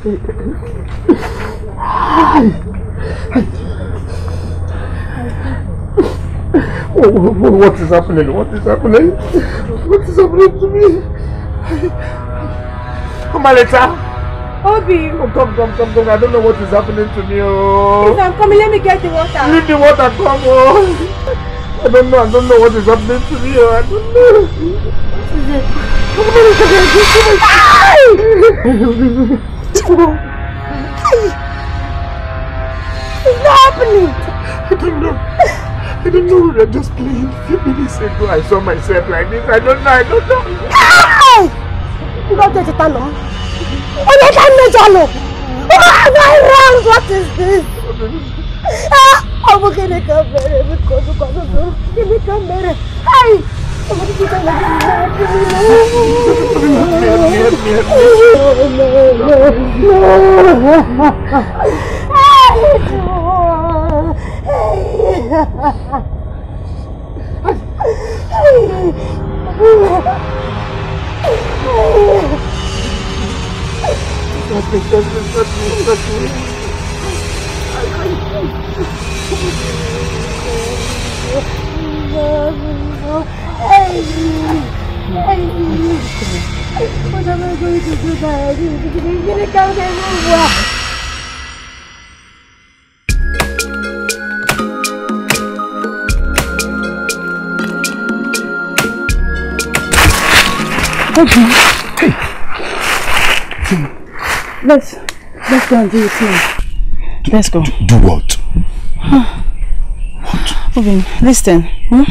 What is happening? What is happening? What is happening to me? Come on, Amaleta! Obi! Oh, come, come, come, come. I don't know what is happening to me. Oh. Please, I'm coming. Let me get the water. Leave the water. Come on. Oh. I don't know. I don't know what is happening to me. Oh. I don't know. What is it? Come on, come Oh, my God kúrò. It's happening. I don't know. I don't know what I'm just playing. A few minutes ago, I saw myself like this. I don't know. I don't know. you Lọ́jọ́ ti ta lọ. Olójà méjọ lọ. Am I wrong? What is this? I'm ah, Ọmọ kìnìkan bẹ̀rẹ̀ mi kọ́dún kọ́dún tó. Kìnìkan bẹ̀rẹ̀. Oh, 我他妈终于走出来了！你这个刚才问我。Okay. Hey. Let's let's go and do it soon. let's go. Do, what? Huh. What? Obin, listen. Hmm?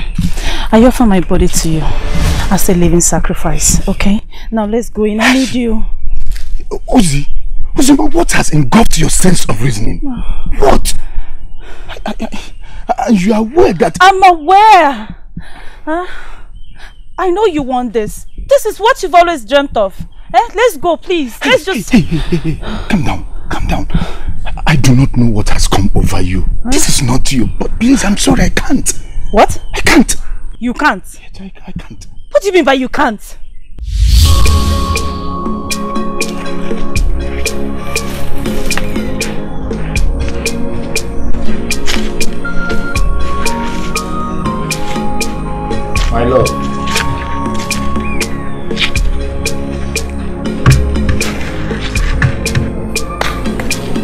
I offer my body to you as a living sacrifice, okay? Now let's go in. I need you. Uzi, Uzi, what has engulfed your sense of reasoning? What? I, I, I, you are aware that... I'm aware! Huh? I know you want this. This is what you've always dreamt of. Eh? Let's go, please. Let's hey, just... Hey, hey, hey, Calm down. Calm down. I do not know what has come over you. Huh? This is not you. But please, I'm sorry, I can't. What? I can't. You can't. I, I can't. What do you mean by you can't? My love.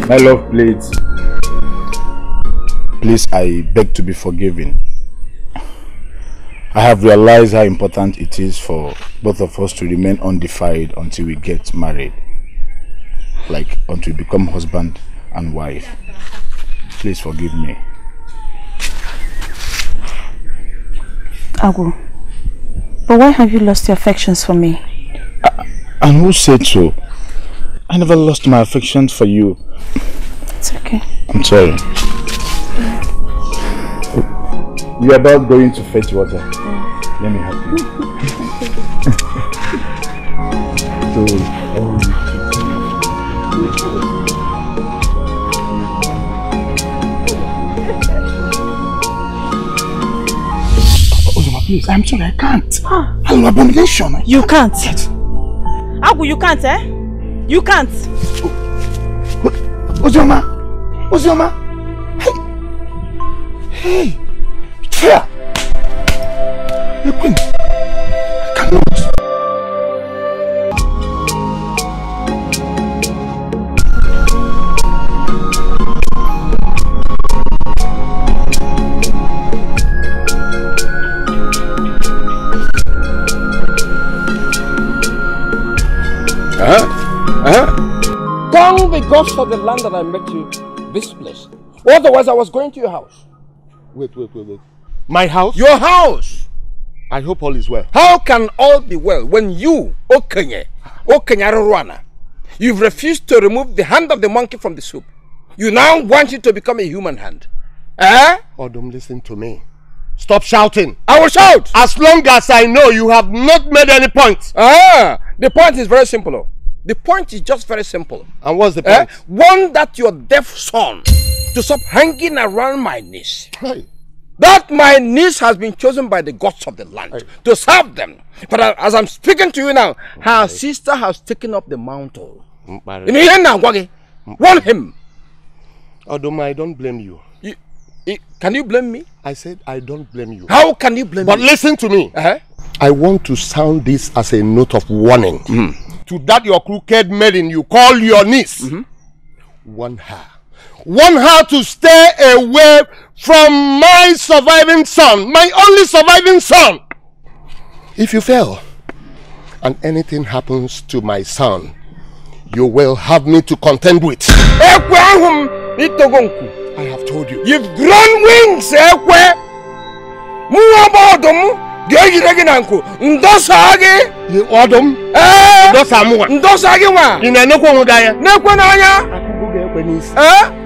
My love, please. Please, I beg to be forgiven. I have realized how important it is for both of us to remain undefined until we get married. Like, until we become husband and wife. Please forgive me. Agu, but why have you lost your affections for me? Uh, and who said so? I never lost my affections for you. It's okay. I'm sorry. We are about going to fetch water. Mm. Let me help you. so, oh. please, I'm sorry, I can't. Huh? Ah. I'm an abomination. I you can't. can't. Agu, you can't, eh? You can't. Ozoma! Ozoma! Hey! Hey! Fear! Uh-huh. Uh-huh. The Queen! I cannot! because of the land that I met you, this place. Otherwise, I was going to your house. Wait, wait, wait, wait. My house? Your house! I hope all is well. How can all be well when you, Okenye, Okenye Ruana, you've refused to remove the hand of the monkey from the soup? You now want it to become a human hand. Eh? Oh, don't listen to me. Stop shouting. I will shout. As long as I know you have not made any points. Ah, the point is very simple. Oh. The point is just very simple. And what's the eh? point? Eh? One that your deaf son to stop hanging around my knees. Hey that my niece has been chosen by the gods of the land I, to serve them. But as I'm speaking to you now, her I, sister has taken up the mantle. Warn him. Odoma, I don't blame you. you. Can you blame me? I said I don't blame you. How can you blame but me? But listen to me. Uh -huh. I want to sound this as a note of warning. Mm. To that your crooked maiden you call your niece. Mm -hmm. Warn her. Want her to stay away from my surviving son, my only surviving son. If you fail and anything happens to my son, you will have me to contend with. I have told you. You've grown wings, Ekwe. You Odom? Eh? Ndosa mwa. Ndosa gị nwa. Ị na-enekwa onwe gị anya? Nekwe n'anya. Akụgụ ga-ekwe n'isi. Eh?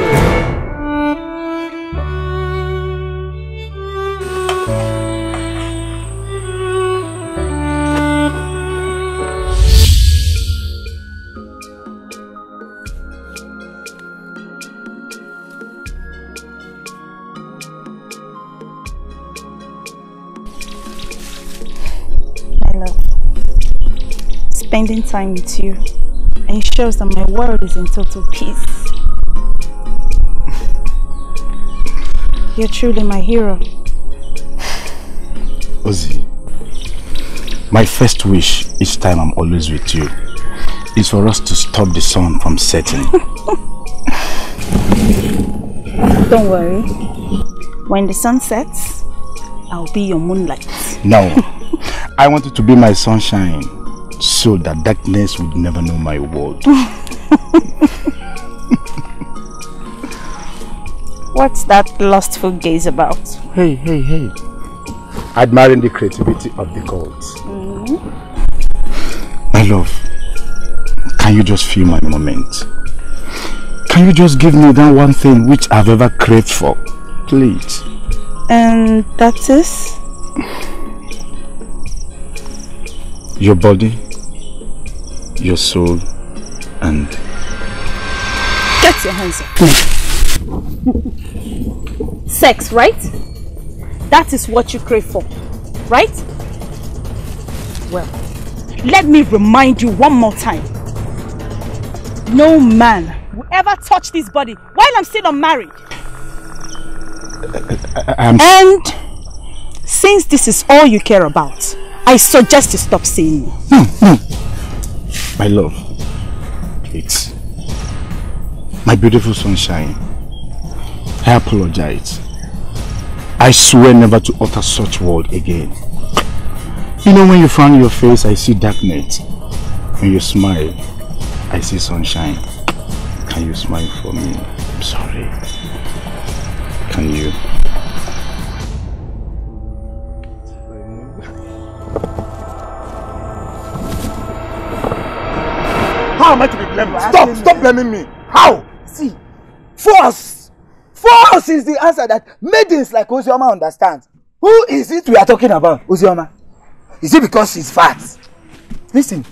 spending time with you ensures that my world is in total peace. You're truly my hero. Ozzy, my first wish each time I'm always with you is for us to stop the sun from setting. Don't worry. When the sun sets, I'll be your moonlight. No. I want you to be my sunshine so that darkness would never know my world. What's that lustful gaze about? Hey, hey, hey. Admiring the creativity of the gods. Mm. My love, can you just feel my moment? Can you just give me that one thing which I've ever craved for? Please. And um, that is? Your body your soul and... Get your hands up. Sex, right? That is what you crave for, right? Well, let me remind you one more time. No man will ever touch this body while I'm still unmarried. I, and since this is all you care about, I suggest you stop seeing me. No, hmm, no, hmm. My love. It's my beautiful sunshine. I apologize. I swear never to utter such word again. You know when you frown your face, I see darkness. When you smile, I see sunshine. Can you smile for me? I'm sorry. Can you? Stop! Stop blaming me. How? See, force. Force is the answer that maidens like Ozioma understand. Who is it we are talking about, Ozioma? Is it because she's fat? Listen,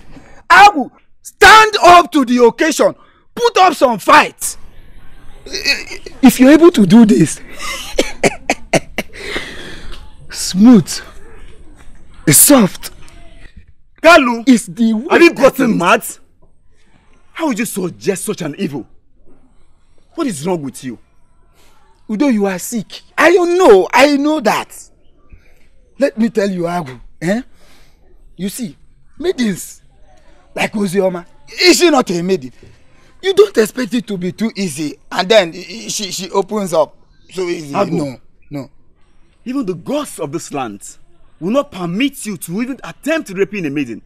I will stand up to the occasion, put up some fights. If you're able to do this, smooth, soft, Kalu, is the way. Have you gotten mad? How would you suggest such an evil? What is wrong with you? Although you are sick. I don't know. I know that. Let me tell you, Agu. Eh? You see, maidens like Ozioma, is she not a maiden? You don't expect it to be too easy, and then she she opens up so easy. Agu, no, no. Even the gods of this land will not permit you to even attempt raping a maiden.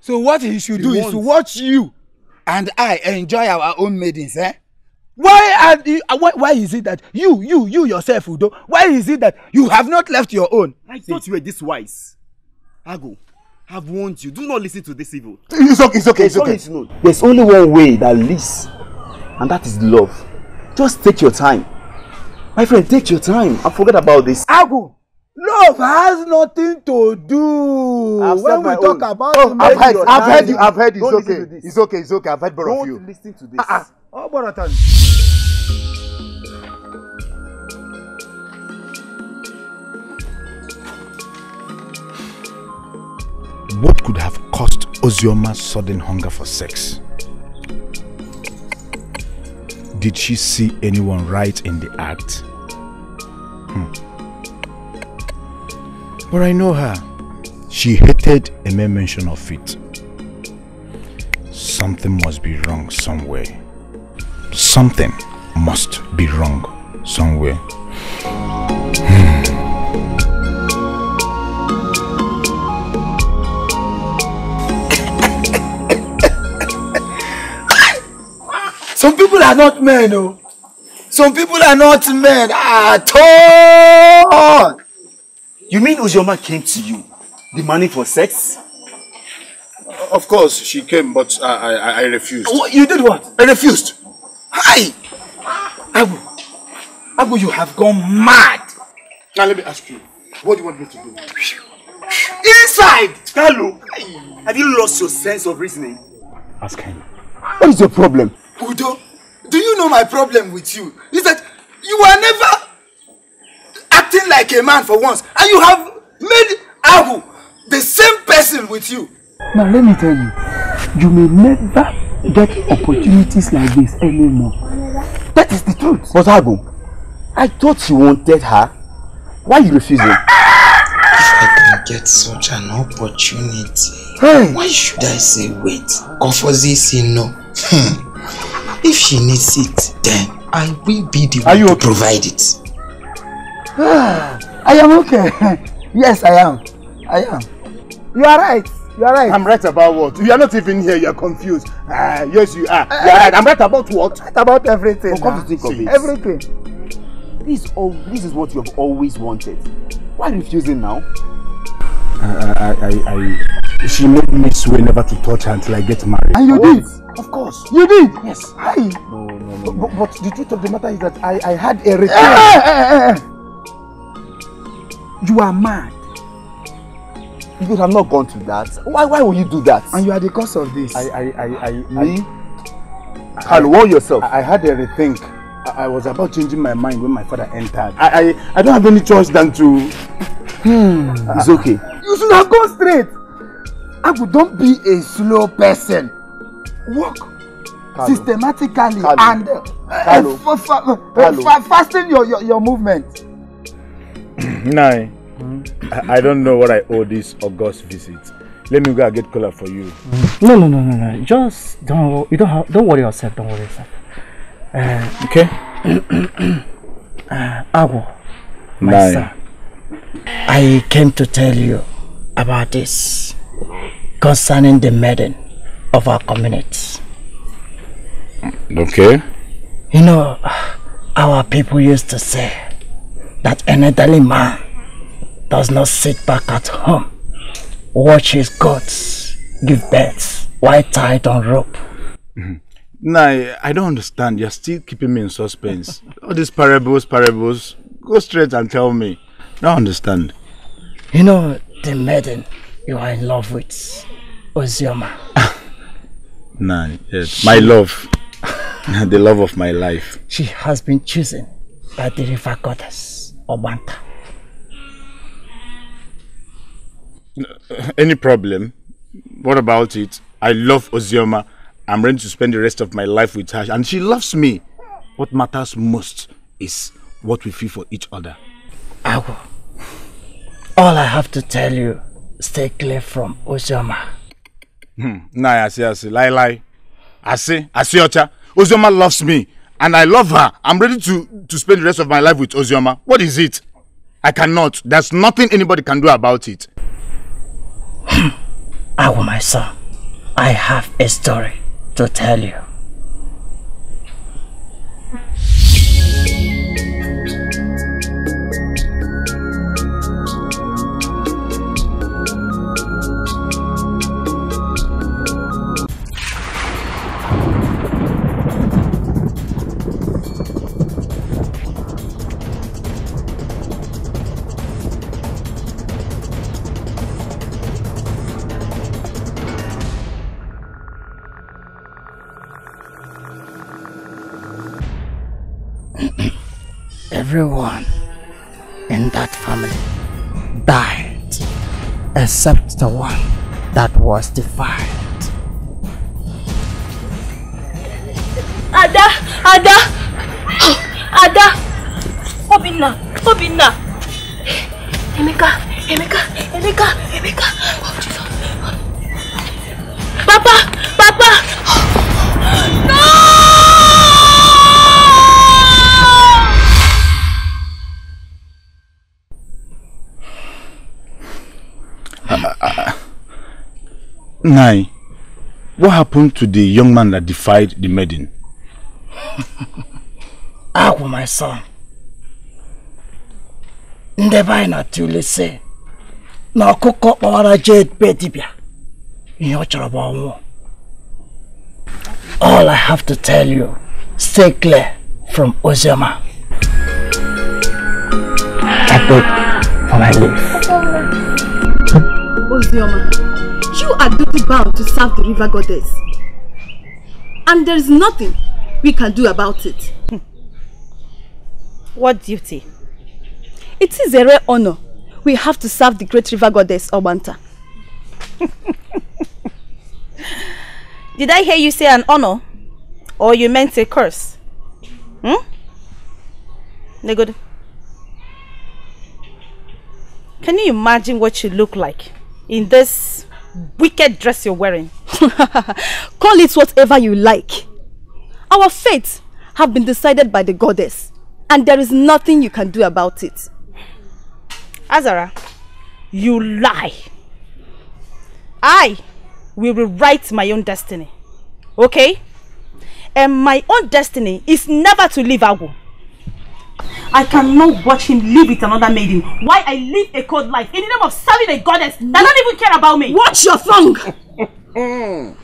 So what he should he do wants. is to watch you and I enjoy our own maidens. Eh? Why, are you, uh, why, why is it that you, you, you yourself, Udo, why is it that you have not left your own? I thought you were this wise. Ago, have warned you. Do not listen to this evil. It's okay, it's okay, it's, it's okay. It's okay. There's only one way that leads, and that is love. Just take your time. My friend, take your time and forget about this. Ago, Love has nothing to do I've when we talk own. about oh, I've heard, I've heard you. I've heard It's okay. It's okay. It's okay. I've heard both of you. Don't listen to this. Uh-uh. Oh, Borotan. What could have caused Ozioma's sudden hunger for sex? Did she see anyone right in the act? Hmm. But I know her. She hated a mere mention of it. Something must be wrong somewhere. Something must be wrong somewhere. Hmm. Some people are not men, oh! Some people are not men at all. You mean Ujoma came to you demanding for sex? Of course, she came, but I, I, I refused. What, you did what? I refused. Hi! Abu, Abu, you have gone mad. Now let me ask you, what do you want me to do? Inside! Kalu, have you lost your sense of reasoning? Ask him. What is your problem? Udo, do you know my problem with you? Is that you are never acting like a man for once, and you have made Abu the same person with you. Now let me tell you, you may never get opportunities like this anymore. That is the truth. But Abu, I thought you wanted her. Why are you refusing? If I can get such an opportunity, hey. why should I say wait? Kofozi say no. Hmm. if she needs it, then I will be the one to provide it. I am okay. Yes, I am. I am. You are right. You are right. I'm right about what? You are not even here. You are confused. Ah, uh, yes, you are. Eh, eh. you are right. I'm right about what? Right about everything. Oh, come to think of it. Everything. This is, all, this is what you have always wanted. Why refusing now? I, I, I, I, she made me swear never to touch her until I get married. And you oh, did? Of course. You did? Yes. I. No, no, no. no. But, but the truth of the matter is that I, I had a return. You are mad. You should have not gone to that. Why why would you do that? And you are the cause of this. I I I I me. I, Carl, warn yourself. I, I had a rethink. I, I was about changing my mind when my father entered. I I, I don't have any choice than to. Hmm. it's okay. You should have gone straight. Agu, don't be a slow person. Walk Carlo. systematically Carlo. and uh, Carlo. Uh, fa fa Carlo. Fa your, your your movement. Nine. Eh. Mm I, I, don't know what I owe this August visit. Let me go and get color for you. Mm No, no, no, no, no. Just don't. You don't have. Don't worry yourself. Don't worry yourself. Uh, okay. uh, Ago, my eh. son. I came to tell you about this concerning the maiden of our community. Okay. You know, our people used to say that an elderly man does not sit back at home, watch his goats give birth while tied on rope. Mm -hmm. Nah, I don't understand. You're still keeping me in suspense. All these parables, parables. Go straight and tell me. I don't understand. You know the maiden you are in love with, Ozioma. nah, yes. My love. the love of my life. She has been chosen by the river goddess. Obanta. Any problem? What about it? I love Ozioma. I'm ready to spend the rest of my life with her, and she loves me. What matters most is what we feel for each other. Agu, all I have to tell you, stay clear from Ozioma. Hmm. Nah, I see, I see. Lie, lie. I see, I see, Ocha. Ozioma loves me. and I love her. I'm ready to, to spend the rest of my life with Ozioma. What is it? I cannot. There's nothing anybody can do about it. Awa, my son, I have a story to tell you. everyone in that family died except the one that was defiled. Ada! Ada! Ada! Obinna! Obinna! Emeka! Emeka! Emeka! Emeka! Oh, Jesus! Papa! Papa! No! Nai, what happened to the young man that defied the maiden? Agwụ, my son. Ndebe anyị na-atụle si na ọkụkọ kpọwara jade be dibịa ihe ọ All I have to tell you, stay clear from Ozema. I beg for my life. Ozema. You are duty bound to serve the river goddess. And there is nothing we can do about it. Hmm. What duty? It is a rare honor. We have to serve the great river goddess, Obanta. Did I hear you say an honor? Or you meant a curse? Hmm? good. Can you imagine what you look like in this wicked dress you're wearing. Call it whatever you like. Our fate have been decided by the goddess and there is nothing you can do about it. Azara, you lie. I will rewrite my own destiny, okay? And my own destiny is never to leave Agu. I cannot watch him live with another maiden. Why I live a cold life in the name of serving a goddess that don't even care about me. Watch your tongue.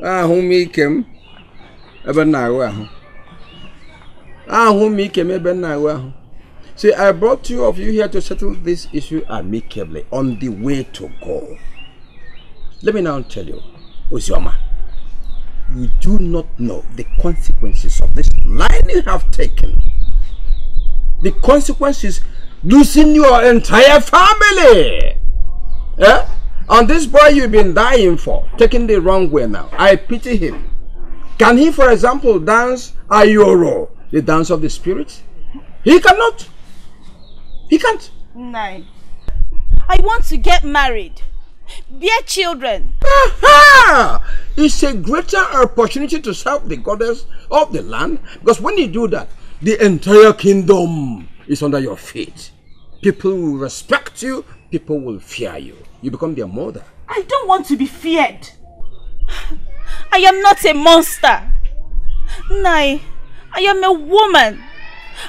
Ah, who make him ebe m na-ahụ ahụ ahụ m ike m ebe see i brought two of you here to settle this issue amicably on the way to go let me now tell you ozioma you do not know the consequences of this line you have taken the consequence is losing your entire family. Yeah? And this boy you've been dying for, taking the wrong way now. I pity him. Can he, for example, dance Ayoro, the dance of the spirit? He cannot. He can't. Nine. I want to get married. Bear children. Aha! It's a greater opportunity to serve the goddess of the land because when you do that, the entire kingdom is under your feet. People will respect you. People will fear you. You become their mother. I don't want to be feared. I am not a monster. Nay, I am a woman.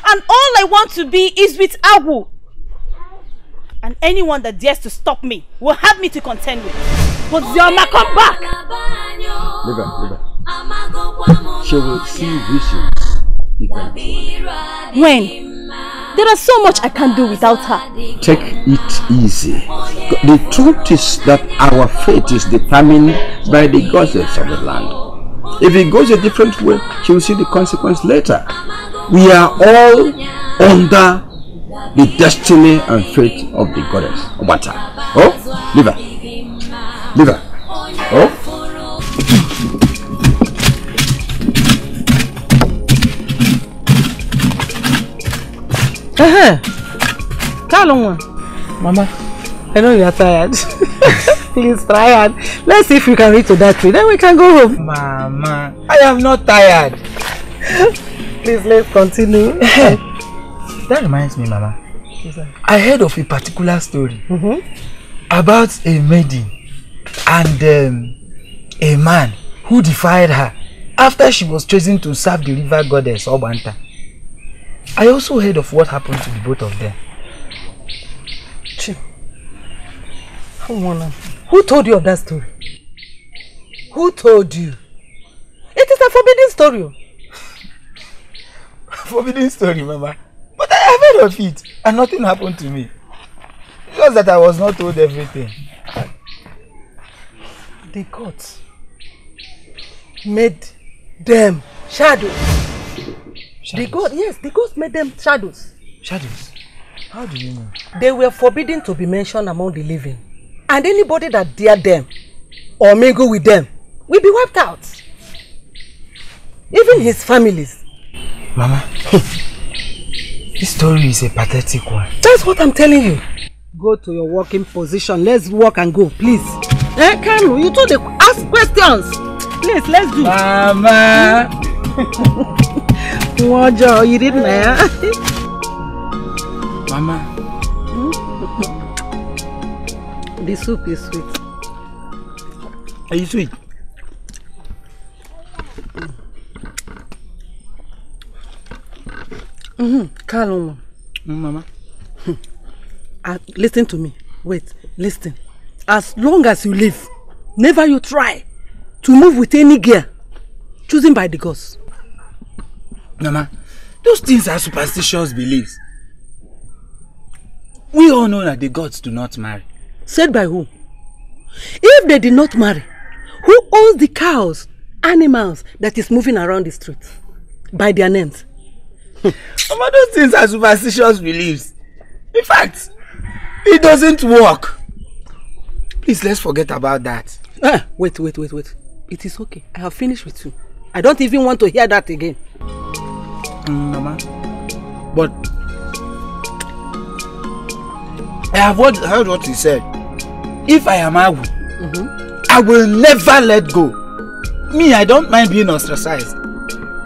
And all I want to be is with Awu. And anyone that dares to stop me will have me to contend with. But Zioma, come back! Liga, Liga. She will see visions. When? There is so much I can do without her. Take it easy. The truth is that our fate is determined by the goddess of the land. If it goes a different way, she will see the consequence later. We are all under the destiny and fate of the goddess. Obata. Oh, liver. Liver. Oh. Tell them one. Mama. I know you are tired. Please try and let's see if we can reach to that tree. Then we can go home. Mama, I am not tired. Please let's continue. That reminds me, Mama. I heard of a particular story mm-hmm. about a maiden and um, a man who defied her after she was chosen to serve the river goddess Obanta. I also heard of what happened to the both of them. Chip, who told you of that story? Who told you? It is a forbidden story. forbidden story, Mama. But I heard of it and nothing happened to me. Just that I was not told everything. The gods made them shadows. The gods, yes, the gods made them shadows. Shadows? How do you know? They were forbidden to be mentioned among the living. And anybody that dared them or mingle with them will be wiped out. Even his families. Mama, this story is a pathetic one. That's what I'm telling you. Go to your working position. Let's walk and go, please. Eh, hey, Kalu, you told the ask questions. Please, let's do. Mama. Mojo, you didn't eh? Mama. The soup is sweet. Are you sweet? Mm-hmm. Calm, mm, Mama. Uh, listen to me. Wait, listen. As long as you live, never you try to move with any gear, chosen by the gods. Mama, those things are superstitious beliefs. We all know that the gods do not marry. Said by who? If they did not marry, who owns the cows, animals that is moving around the street? By their names. Mama, those things are superstitious beliefs. In fact, it doesn't work. Please, let's forget about that. Ah, wait, wait, wait, wait. It is okay. I have finished with you. I don't even want to hear that again. Mm, mama. But I have heard, heard what he said. If I am Agu, mm-hmm. I will never let go. Me, I don't mind being ostracized.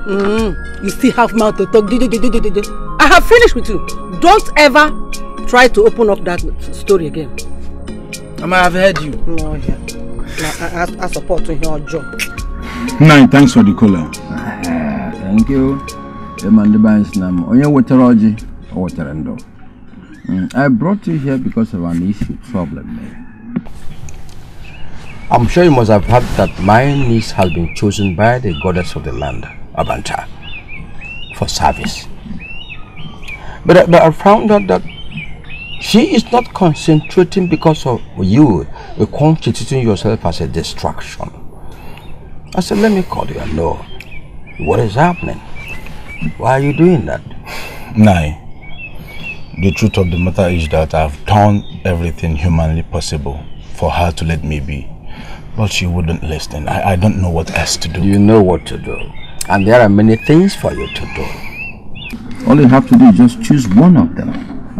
Mm, you still have mouth to talk. I have finished with you. Don't ever try to open up that story again. Mama, have heard you. No, yeah. I, I, I support you, job. Nine, thanks for the caller. Ah, thank you. Mandibans Nam, Oya Waterology, Waterando. Mm, I brought you here because of an issue problem. Man. Eh? I'm sure you must have heard that my niece has been chosen by the goddess of the land, Abanta, for service. But, but I found out that she is not concentrating because of you constituting yourself as a distraction. I said, let me call you and know what is happening. Why are you doing that? Nai, the truth of the matter is that I've done everything humanly possible for her to let me be. But she wouldn't listen. I, I don't know what else to do. You know what to do. And there are many things for you to do. All you have to do is just choose one of them.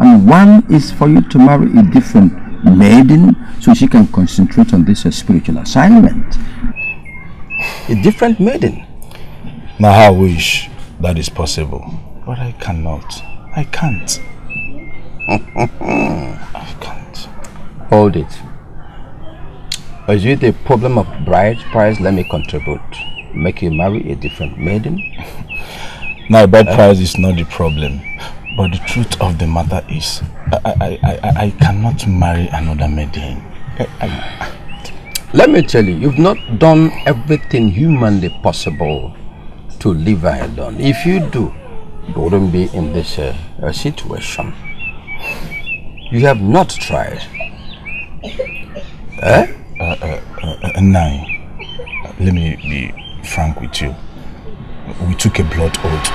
And one is for you to marry a different maiden so she can concentrate on this spiritual assignment. A different maiden? Now I wish. That is possible. But I cannot. I can't. I can't. Hold it. Is it a problem of bride price? Let me contribute. Make you marry a different maiden? now, bride uh, price is not the problem. But the truth of the matter is, I, I, I, I cannot marry another maiden. I, I, let me tell you, you've not done everything humanly possible to live alone. If you do, you wouldn't be in this uh, uh situation. You have not tried. Eh? Uh, uh, uh nine. Let me be frank with you. We took a blood oath.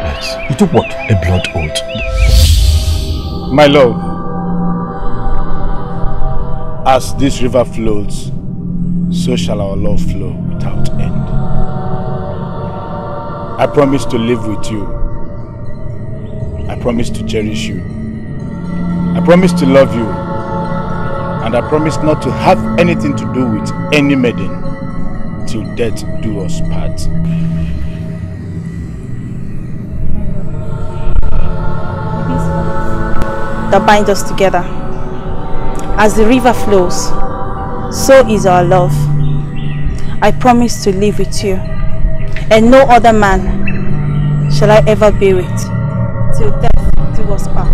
Yes. You took what? A blood oath. My love, as this river flows, so shall our love flow without I promise to live with you. I promise to cherish you. I promise to love you. And I promise not to have anything to do with any maiden till death do us part. That binds us together. As the river flows, so is our love. I promise to live with you and no other man shall I ever be with till death do us part.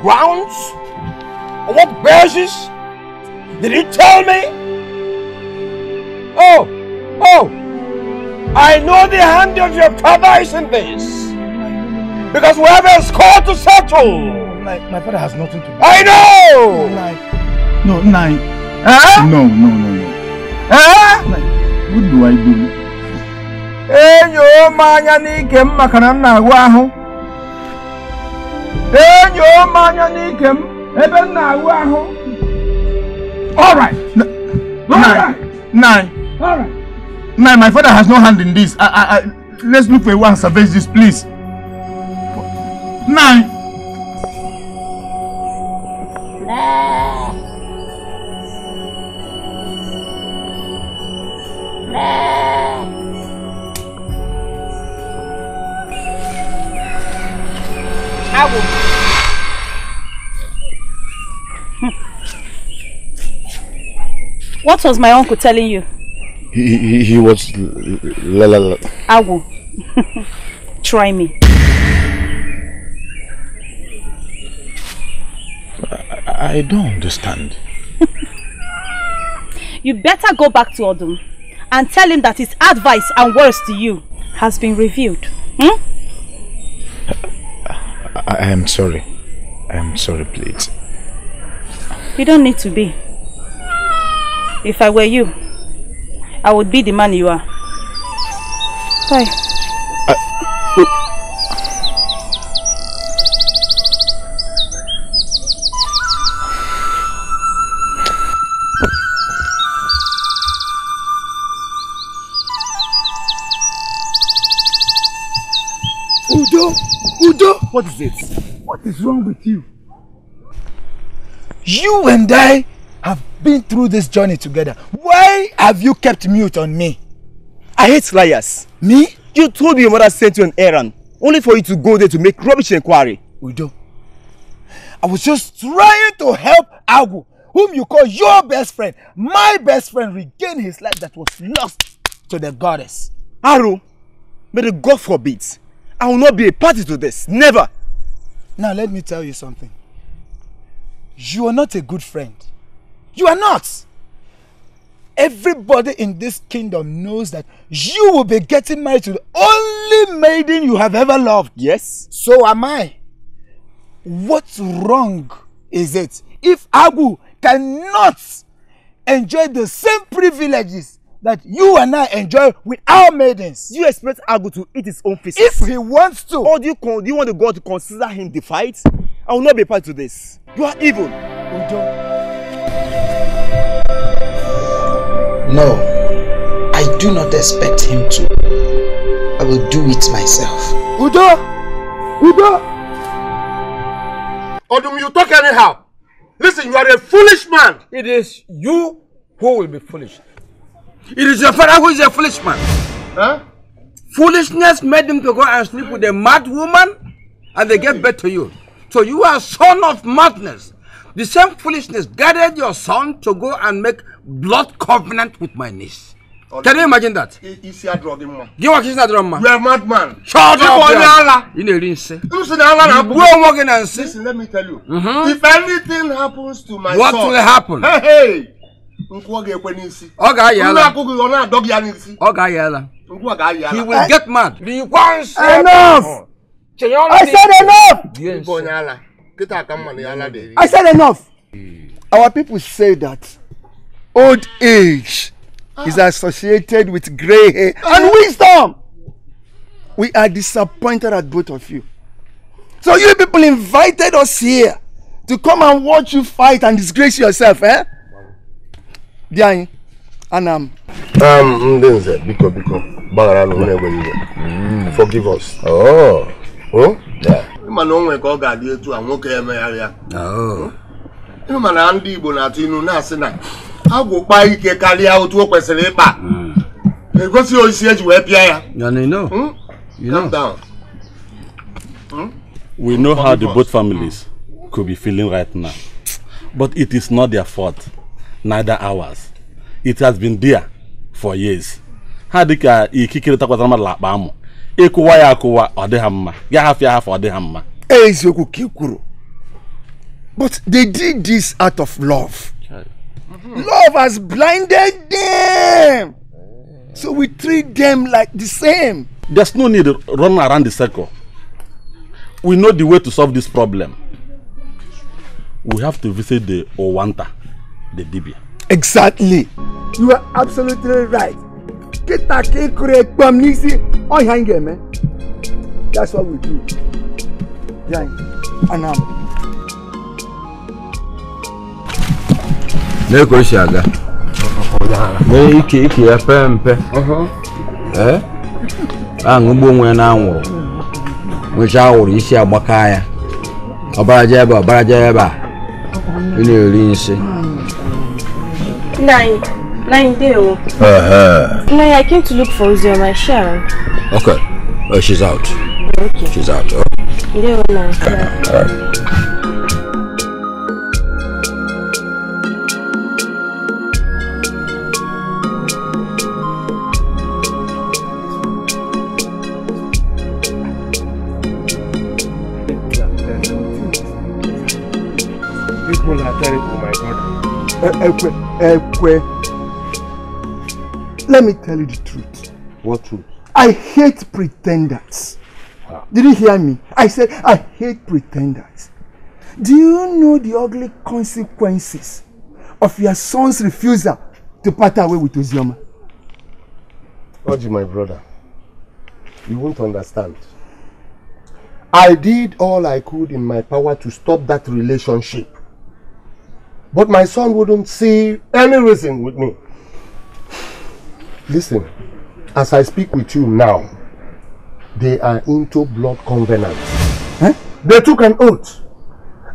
grounds? On what basis? Did he tell me? Oh, oh, I know the hand of your father is in this. Because we have a score to settle. My, my father has nothing to do. I know! Like, no, Huh? No, no, no, no. Huh? what do I do? Eh, yo, manya ni kem makanana waho. tụọ m anya n'ike m ebe m na-awụ ahụ Nine, my father has no hand in this. I, I, I, let's look for a way and this, please. was my uncle telling you? He, he, he was... La, la, la. Agu. Try me. I, I don't understand. you better go back to Odum and tell him that his advice and words to you has been reviewed. Hmm? I, I am sorry. I am sorry, please. You don't need to be. If I were you, I would be the man you are. Bye. Udo! Udo! What is it? What is wrong with you? You and I been through this journey together. Why have you kept mute on me? I hate liars. Me? You told me your mother sent you an errand, only for you to go there to make rubbish inquiry. do. I was just trying to help Agu, whom you call your best friend, my best friend, regain his life that was lost to the goddess. Aru, may the God forbid, I will not be a party to this, never. Now let me tell you something. You are not a good friend. You are not. Everybody in this kingdom knows that you will be getting married to the only maiden you have ever loved. Yes. So am I. What's wrong is it if Agu cannot enjoy the same privileges that you and I enjoy with our maidens. you expect Agu to eat his own feces? If he wants to. Or do you, do you want the God to consider him defied? I will not be part to this. You are evil. Udo. No, I do not expect him to. I will do it myself. Udo! Udo! Odum, you talk anyhow. Listen, you are a foolish man. It is you who will be foolish. It is your father who is a foolish man. Huh? Foolishness made him to go and sleep with a mad woman and they gave birth to you. So you are son of madness. The same foolishness guided your son to go and make blood covenant with my niece. Oh, Can you imagine that? Isi adro gị mma. Gị nwa ka isi adro mma. You are mad man. Shut up onye ala. Ị na-eri nsị. M si na ala na abụ. Gbuo onwe gị na nsị. Listen let me tell you. Mm -hmm. If anything happens to my What son. What will happen? Hey, hey. Nkwụ ọ ga-ekwe n'isi. Ọ ga-ayị ala. Nna akụkụ ọ na-adọ gị ya n'isi. Ọ ga-ayị ala. Nkwụ ọ ga-ayị ala. He will get mad. The one say. Enough. I said enough. Gbuo onye ala. I said enough. Hmm. Our people say that old age is ah. associated with gray hair ah. and wisdom. We are disappointed at both of you. So you people invited us here to come and watch you fight and disgrace yourself, eh? Dianyi, Anam. Um, Ndenze, biko biko, bagara no hmm. Forgive us. Oh. Oh? Yeah. ịmana o nwere ka ọ ga-adị etu a nwoke emegharịa oh. ịmana ndị Igbo na-atụ inu na-asị na agwụ ike karịa otu o kwesịrị ịkpa hmm. egosi osisi eji wee pịa ya hmm? hmm? We know how the both families could be feeling right now, but it is not their fault, neither ours. It has been there for years. ha dịka ikikere takwatara mmadụ akpa amụ ịkụwa ya akụwa ọ dị ha mma ya hafụ ya hafụ ọ dị ha mma e, eziokwu ka ị kwuru but they did this out of love love has blinded them so we treat them like the same there's no need run around the circle we know the way to solve this problem we have to visit the owanta the dibia exactly you are absolutely right kịta ka ị kụrụ n'isi ọhịa anyị ga-eme that's what we do ya anam lee ka o si aga mee ike ike ya pee mpe uh-huh. ee eh? aṅụgbu onwe ya n'anwụrụ nwechaa awụrụ isi agbaka ya ọbaraja ebe ọbaraja ebe a ị na-eri nsị Nainde. Uh -huh. Nay, I came to look for Uzioma Sharon. Okay. oh, she's out. Okay. She's out. Oh. Yeah. Oh, all right. People Uh, uh, uh, uh, Let me tell you the truth. What truth? I hate pretenders. Wow. Did you hear me? I said I hate pretenders. Do you know the ugly consequences of your son's refusal to part away with Ozioma? Oji, my brother, you won't understand. I did all I could in my power to stop that relationship. But my son wouldn't see any reason with me. Listen, as I speak with you now, they are into blood covenant. Eh? They took an oath.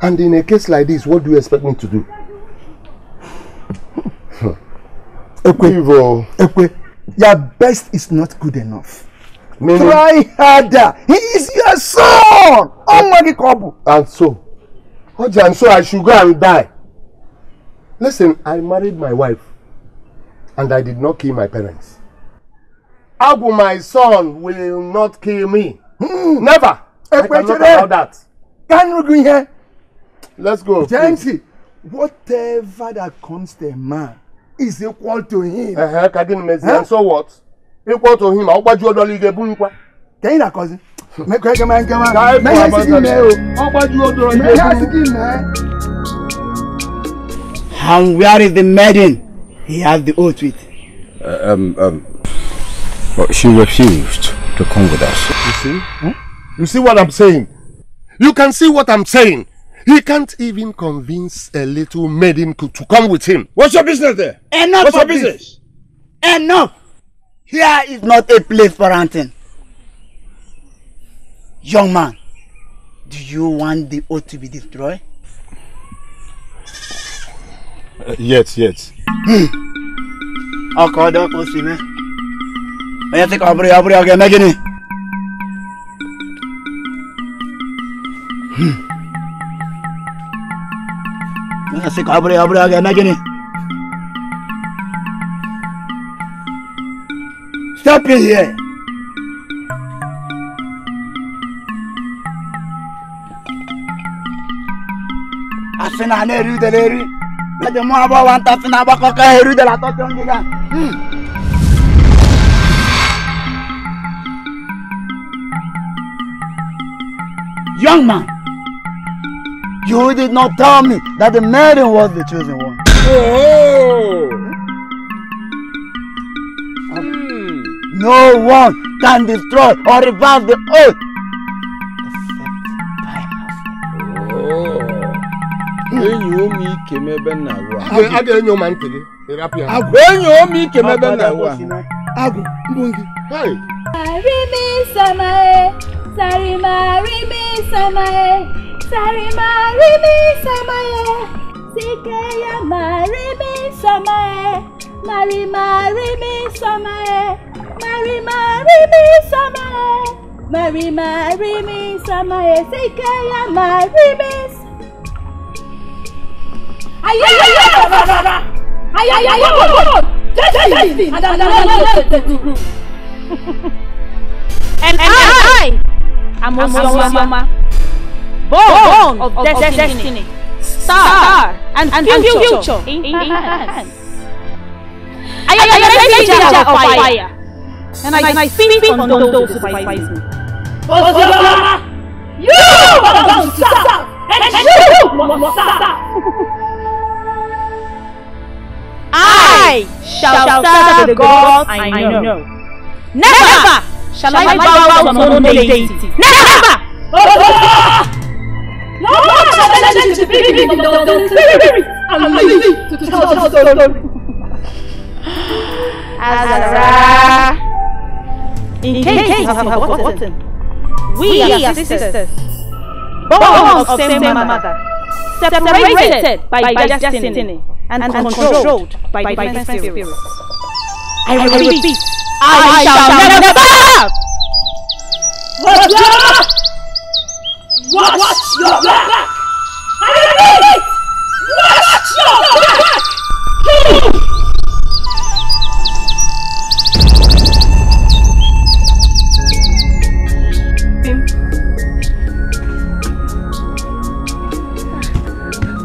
And in a case like this, what do you expect me to do? Ekwe, Evil. Oh. Ekwe, your best is not good enough. Meaning? Try harder. He is your son. And so, and so I should go and die. Listen, I married my wife and I did not kill my parents. Abu, my son, will not kill me. Mm. Never. I, I cannot allow that. Can agree here? Let's go. Gently, whatever that comes to a man is equal to him. Uh -huh. Kadin Mezi, huh? and so what? Equal to him. I'll buy you a dollar. Can you not cause it? Make a man come out. Make a man come out. I'll buy you a dollar. Make a man come out. And where is the maiden? he had the oath with. Uh, um, um, but she refused to come with us. You see? You see what I'm saying? You can see what I'm saying. He can't even convince a little maiden to come with him. What's your business there? Enough What's your business? Enough. Here is not a place for hunting. Young man, do you want the oath to be destroyed? yet yet. ọkọ ọdọ kò sí mi onye tịka ọbụrụ ya ọbụrụ ya ọ ga-eme gịnị onye sị ka ọ bụrụ ya ọ bụrụ ya ọ ga-eme gịnị step here asị eri udele eri aje mo abo wan ta fina ba ko de la to ton giga Young man, you did not tell me that the maiden was the chosen one. Oh. Hmm? No one can destroy or reverse the oath enyi omi ike m ebe nna awụ a ga-enyo ma ntị gị agwụ enyi omi ike m ebe nna awụ a agwụ ngwụ gị arịmi samae sarima arịmi samae sarima arịmi samae sike ya ma arịmi samae marima arịmi samae marima arịmi samae marima arịmi samae sike ya ma arịmi samae ayé ayé rárá ayé ayé ayé wọ́n jẹ́sí jẹ́sí adájọ́ tẹ̀tẹ̀tù. and I am Osama born of destiny star and future in hands. I am the messenger of fire and I speak on those who fight me. Osama, you are bound south and you must south. I shall serve the gods. I know. Never shall I bow down to no deity. Never! No more shall I let you be in the spirit and live to tell the story. Azara. In case you have forgotten, we are sisters, born of same mother. separated by, by destiny, destiny and, and controlled, controlled by, by divine spirit. spirit. I, I repeat, repeat I, I shall never, never serve! Watch your back! Watch, watch your back! back. I repeat, watch your back! back.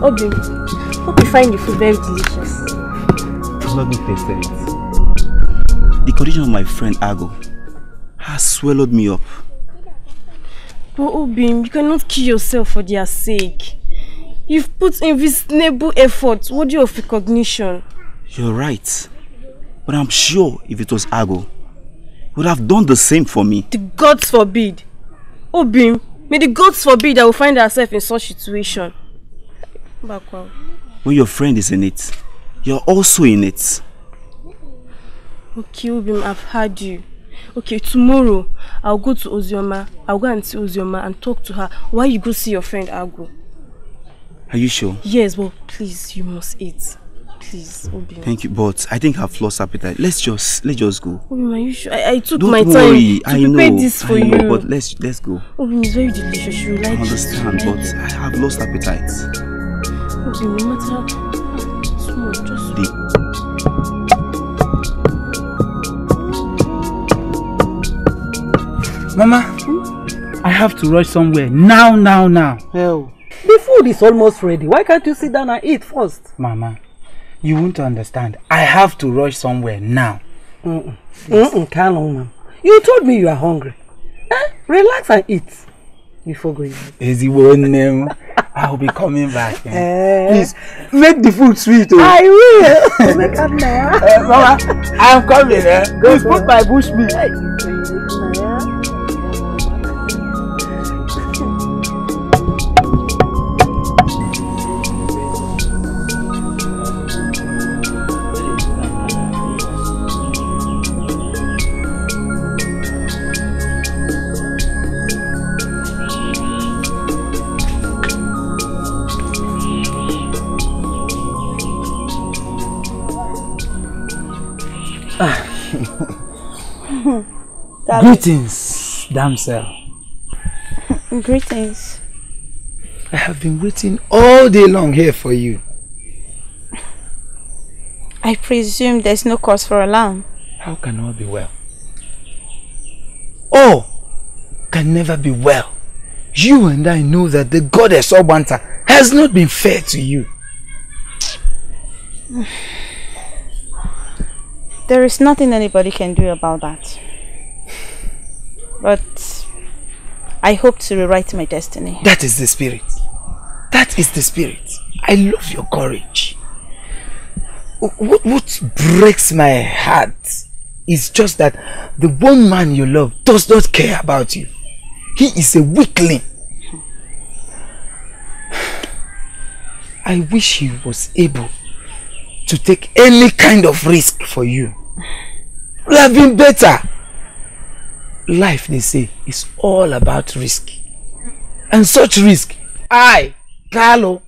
Obi, hope you find the food very delicious. It's not good tasted it. Eh? The condition of my friend Ago has swallowed me up. But Obim, you cannot kill yourself for their sake. You've put in invisible effort worthy of recognition. You're right. But I'm sure if it was Ago, would have done the same for me. The gods forbid. Obim, may the gods forbid I will find ourselves in such situation. Bakwa. When your friend is in it, you're also in it. Okay, Ubim, I've heard you. Okay, tomorrow I'll go to Ozioma. I'll go and see Ozioma and talk to her. Why you go see your friend, I'll go. Are you sure? Yes, but please, you must eat. Please, Obima. Thank you, but I think I've lost appetite. Let's just let's just go. Obima, are you sure? I, I took Don't my worry. time to I prepare know, this for I know, you. But let's let's go. Obima, it's very delicious. You like I understand, it. but I have lost appetite. Mama, hmm? I have to rush somewhere. Now, now, now. Hell. The food is almost ready. Why can't you sit down and eat first? Mama, you won't understand. I have to rush somewhere now. Mm-mm. Mm-mm, ma'am. You told me you are hungry. Eh? Relax and eat before going. Is he one name? I will be coming back. Eh? Eh. Please make the food sweet. Oh. I will. Eh, Mama, I am coming. Eh? Go Please go. put my bush meat. Greetings, damsel. Greetings. I have been waiting all day long here for you. I presume there's no cause for alarm. How can all be well? All can never be well. You and I know that the goddess Obanta has not been fair to you. There is nothing anybody can do about that. But I hope to rewrite my destiny. That is the spirit. That is the spirit. I love your courage. What, what breaks my heart is just that the one man you love does not care about you. He is a weakling. I wish he was able to take any kind of risk for you. We have been better life, they say, is all about risk. And such risk, I, Carlo,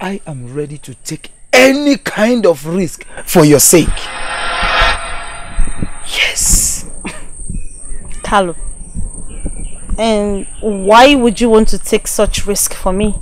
I am ready to take any kind of risk for your sake. Yes. Carlo, and why would you want to take such risk for me?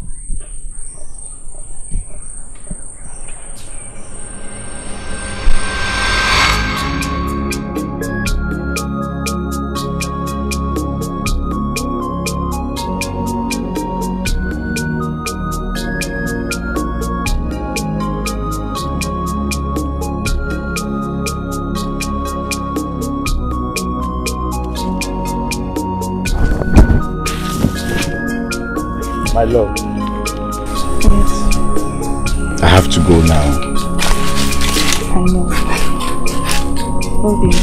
My love. Yes. I have to go now. I know. Obi,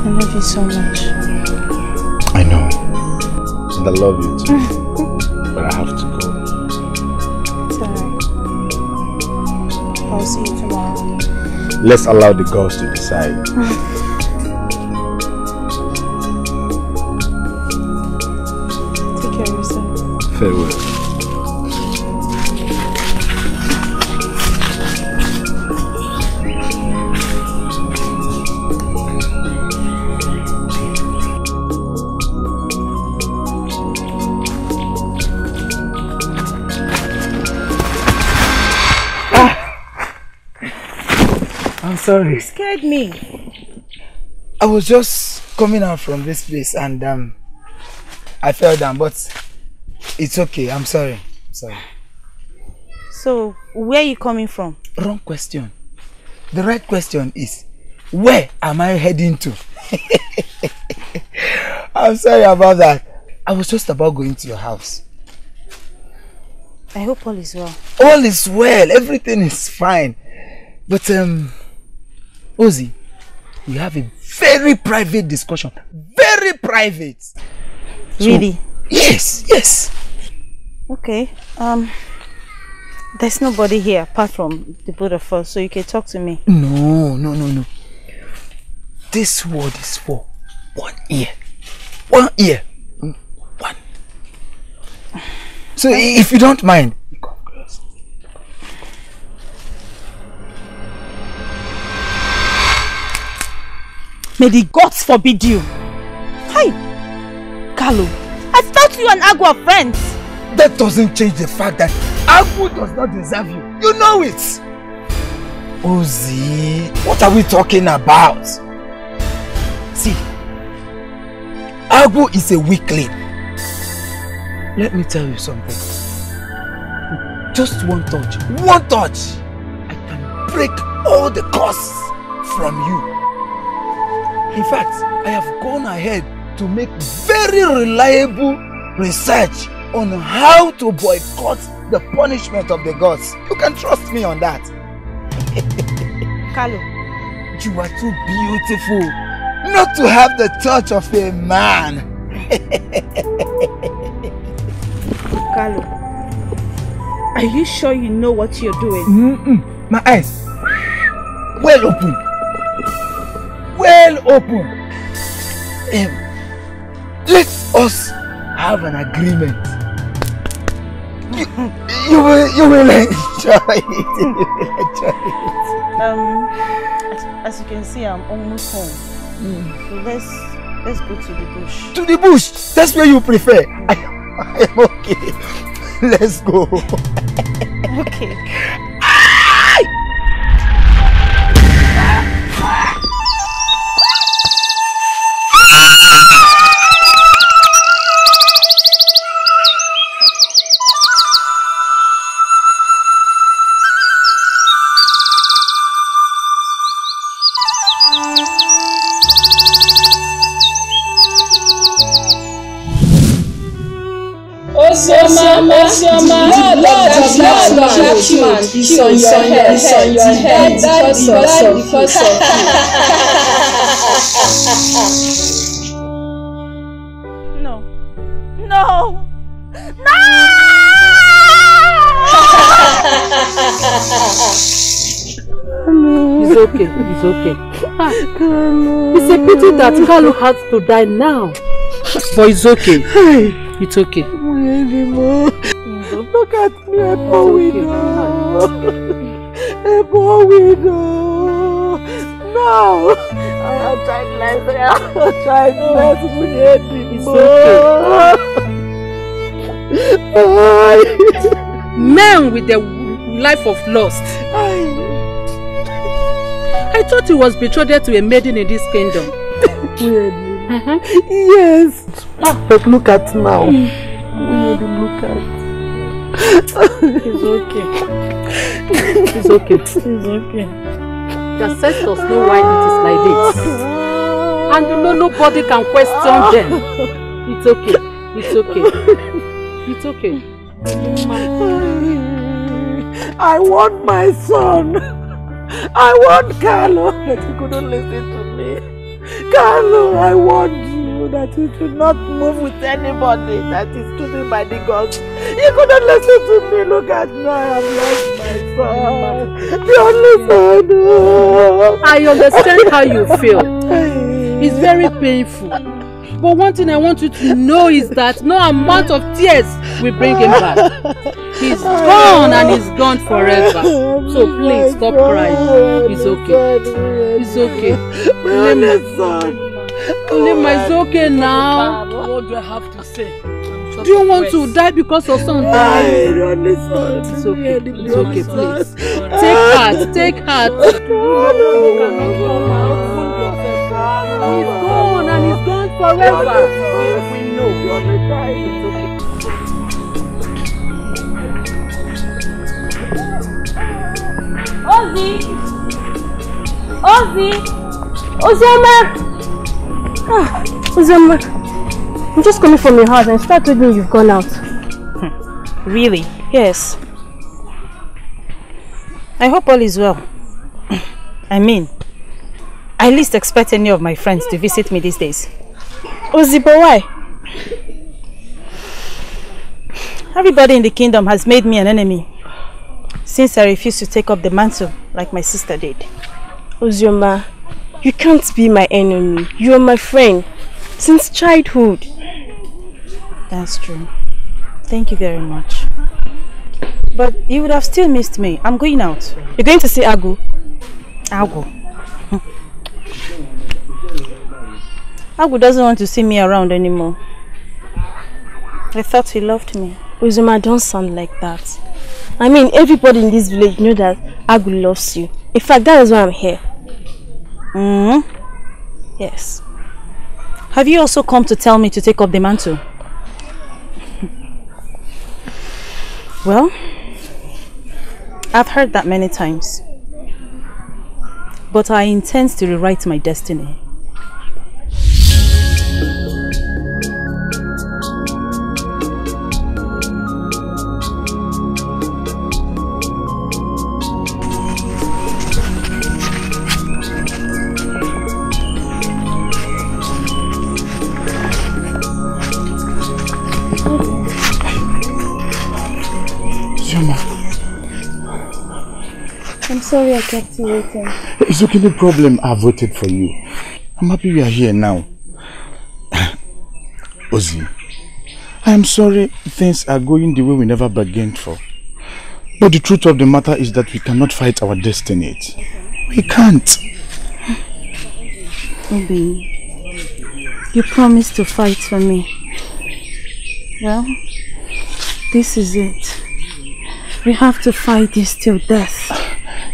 I love you so much. I know. And I love you too. but I have to go. It's alright. I'll see you tomorrow. Let's allow the girls to decide. sorry. You scared me. I was just coming out from this place and um, I fell down, but it's okay. I'm sorry. Sorry. So, where are you coming from? Wrong question. The right question is, where am I heading to? I'm sorry about that. I was just about going to your house. I hope all is well. All is well. Everything is fine. But um, Ozzy, we have a very private discussion. Very private. Really? So, yes, yes. Okay. Um, there's nobody here apart from the both of us, so you can talk to me. No, no, no, no. This word is for one ear. One ear. One. So if you don't mind, May the gods forbid you. Hi, Carlo. I thought you and Agu are friends. That doesn't change the fact that Agu does not deserve you. You know it. Ozi, what are we talking about? See, Agu is a weakling. Let me tell you something. Just one touch, one touch, I can break all the curses from you. In fact, I have gone ahead to make very reliable research on how to boycott the punishment of the gods. You can trust me on that. Carlo. You are too beautiful not to have the touch of a man. Carlo, are you sure you know what you're doing? Mm -mm. My eyes, well open. well open. Um, let us have an agreement. You, you will, you will enjoy it. You will enjoy it. Um, as, as you can see, I'm almost home. Mm. So let's let's go to the bush. To the bush. That's where you prefer. Mm. I, I am okay. Let's go. okay. trap man is on your head is on your head because of some because of no no no it's okay it's okay it's a pity that Kalu has to die now but it's okay it's okay Look at me, a poor widow. A poor widow. Now, I have childless. I have childless. We need it more. man with the life of lust. I thought he was betrothed to a maiden in this kingdom. Weirdly. Uh -huh. Yes. But look at now. Mm. look at. It's okay. It's okay. It's okay. The ancestors know why it is like this. And you know nobody can question them. It's okay. It's okay. It's okay. I want my son. I want Carlo. he couldn't listen to me. Carlo, I want you. that you should not move with anybody that is choosing by the gods. You couldn't listen to me. Look at me. I have lost my son. The only son. I understand how you feel. It's very painful. But one thing I want you to know is that no amount of tears will bring him back. He's gone and he's gone forever. So please stop crying. It's okay. It's okay. Let me. Nima, it's okay now. What do I have to say? Do you want to die because of something? Ah, I don't understand. It's okay. It's okay, please. Take heart. Take heart. He's gone and he's gone forever. We Ozzy! Ozzy! Ozzy, Ah, Uzama, I'm just coming from your house and start telling me you've gone out. Hmm. Really? Yes. I hope all is well. I mean, I least expect any of my friends to visit me these days. Ozibo, why? Everybody in the kingdom has made me an enemy since I refused to take up the mantle like my sister did. Uzioma, you can't be my enemy. You are my friend. Since childhood. That's true. Thank you very much. But you would have still missed me. I'm going out. You're going to see Agu? Agu? Agu doesn't want to see me around anymore. I thought he loved me. Uzuma, don't sound like that. I mean, everybody in this village know that Agu loves you. In fact, that is why I'm here. Mm hmm Yes. Have you also come to tell me to take up the mantle? well, I've heard that many times. But I intend to rewrite my destiny. sorry I kept you waiting. It's okay, no problem. I voted for you. I'm happy we are here now. Ozzy, I am sorry things are going the way we never bargained for. But the truth of the matter is that we cannot fight our destiny. We can't. Obi, you promised to fight for me. Well, this is it. We have to fight this till death.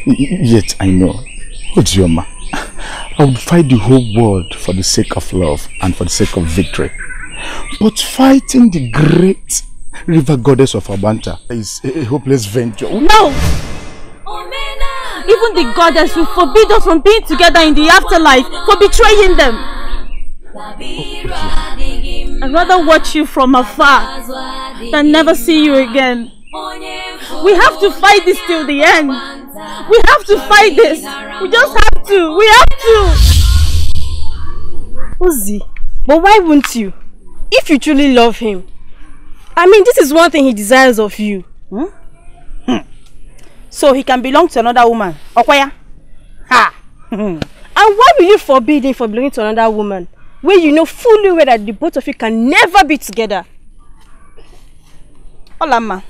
Yet I know. Ojioma, I would fight the whole world for the sake of love and for the sake of victory. But fighting the great river goddess of Abanta is a hopeless venture. No! Even the goddess will forbid us from being together in the afterlife for betraying them. I'd rather watch you from afar than never see you again. We have to fight this till the end. We have to fight this. We just have to. We have to. Uzi, but why won't you? If you truly love him. I mean, this is one thing he desires of you. Hmm? Hmm. So he can belong to another woman. Okwaya? Ha! and why will you forbid him from belonging to another woman? when you know fully well that the both of you can never be together. Olama.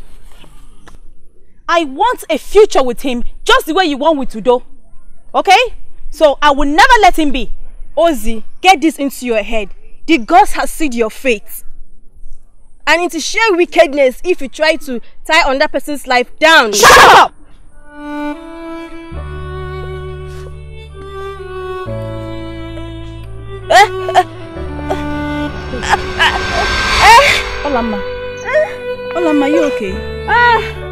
I want a future with him just the way you want with Tudo. Okay? So I will never let him be. Ozzy, get this into your head. The gods have sealed your fate. And it is sheer wickedness if you try to tie on that person's life down. Shut up! Olama. Olama, you okay? Ah!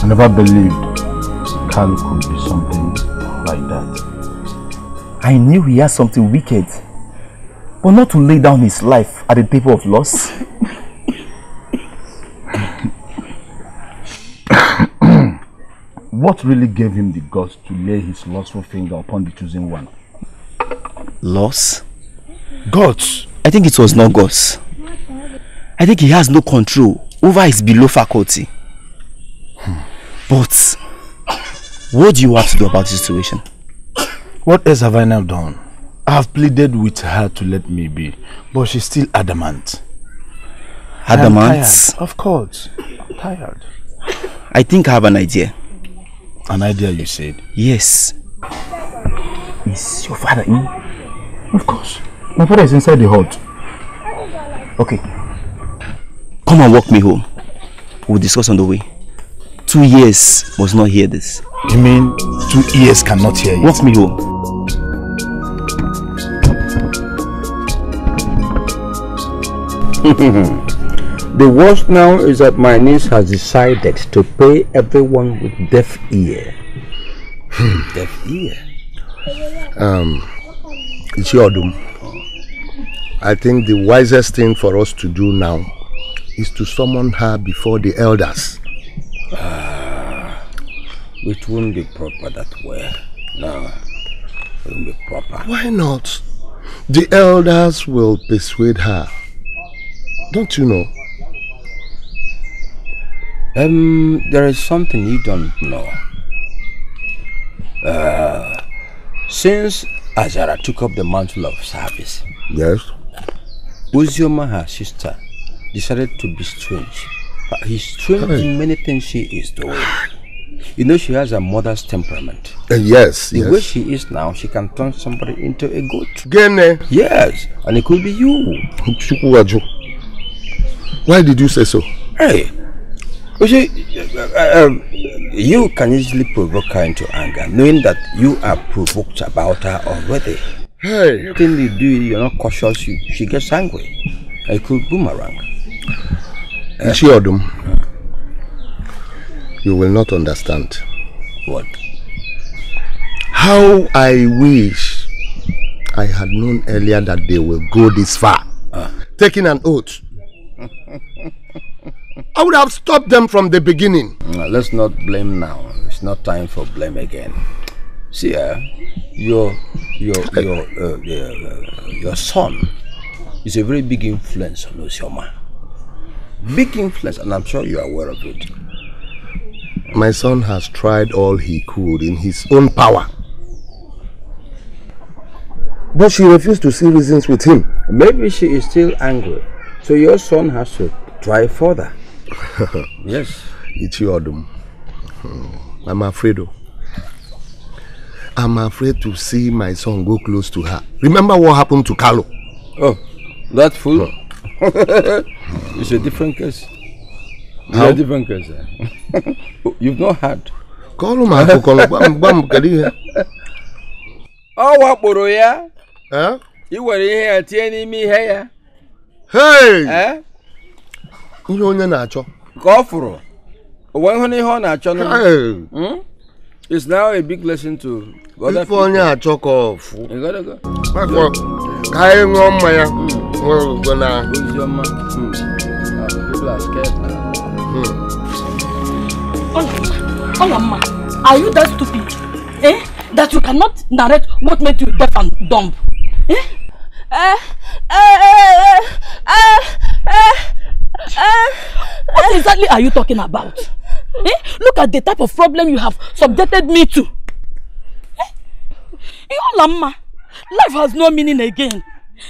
I never believed Carl could be something like that. I knew he had something wicked, but not to lay down his life at the table of loss. what really gave him the guts to lay his lustful finger upon the chosen one? Loss? Gods? I think it was not gods. I think he has no control over his below faculty. Hmm. But what do you have to do about the situation? What else have I now done? I have pleaded with her to let me be, but she's still adamant. Adamant? Of course. I'm tired. I think I have an idea. An idea, you said? Yes. Is your father in? Of course. My father is inside the hut. Okay. Come and walk me home. We'll discuss on the way. Two years must not hear this. You mean two ears cannot hear you? Walk me home. the worst now is that my niece has decided to pay everyone with deaf ear. Hmm. deaf ear? Um, it's your doom. I think the wisest thing for us to do now is to summon her before the elders. Ah, it won't be proper that way. No, it won't be proper. Why not? The elders will persuade her. Don't you know? Um, there is something you don't know. Uh, since Azara took up the mantle of service, yes, Uzioma, her sister, decided to be strange. But he's strange hey. in many things she is doing. You know, she has a mother's temperament. Uh, yes, The yes. way she is now, she can turn somebody into a goat. Gene. Yes, and it could be you. Why did you say so? Hey, you see, uh, uh um, you can easily provoke her into anger, knowing that you are provoked about her already. Hey. Anything you do, you're not cautious. You, she gets angry. I could boomerang. Uh, she Odum, you will not understand. What? How I wish I had known earlier that they will go this far. Uh. Taking an oath. I would have stopped them from the beginning. No, let's not blame now. It's not time for blame again. See, uh, your your eh. your uh, uh, your son is a very big influence on Osioma. Big influence, and I'm sure you are aware of it. My son has tried all he could in his own power. But she refused to see reasons with him. Maybe she is still angry. So your son has to try further. yes. It's your doom. I'm afraid. Of. Oh. I'm afraid to see my son go close to her. Remember what happened to Carlo? Oh, that fool? No. it's a different case. It's How? a different case. Eh? You've not heard. Call him, Uncle. Call him. Bam, bam, Oh, what, Boro, yeah? Huh? You were here, telling me here. Hey! Huh? You're not a Go for it. When honey, honey, honey. Hey! Hmm? It's now a big lesson to other hmm. hmm. people. onye achọkọ ọfụ makọ ka anyị ṅụọ mmanya nwere na hmm. Olamma, are you that stupid? Eh? That you cannot narrate what made you deaf and dumb? Eh? Uh, uh, uh, uh, uh, uh, what exactly are you talking about? Eh? Look at the type of problem you have subjected me to. Eh? Yolama, eh, life has no meaning again.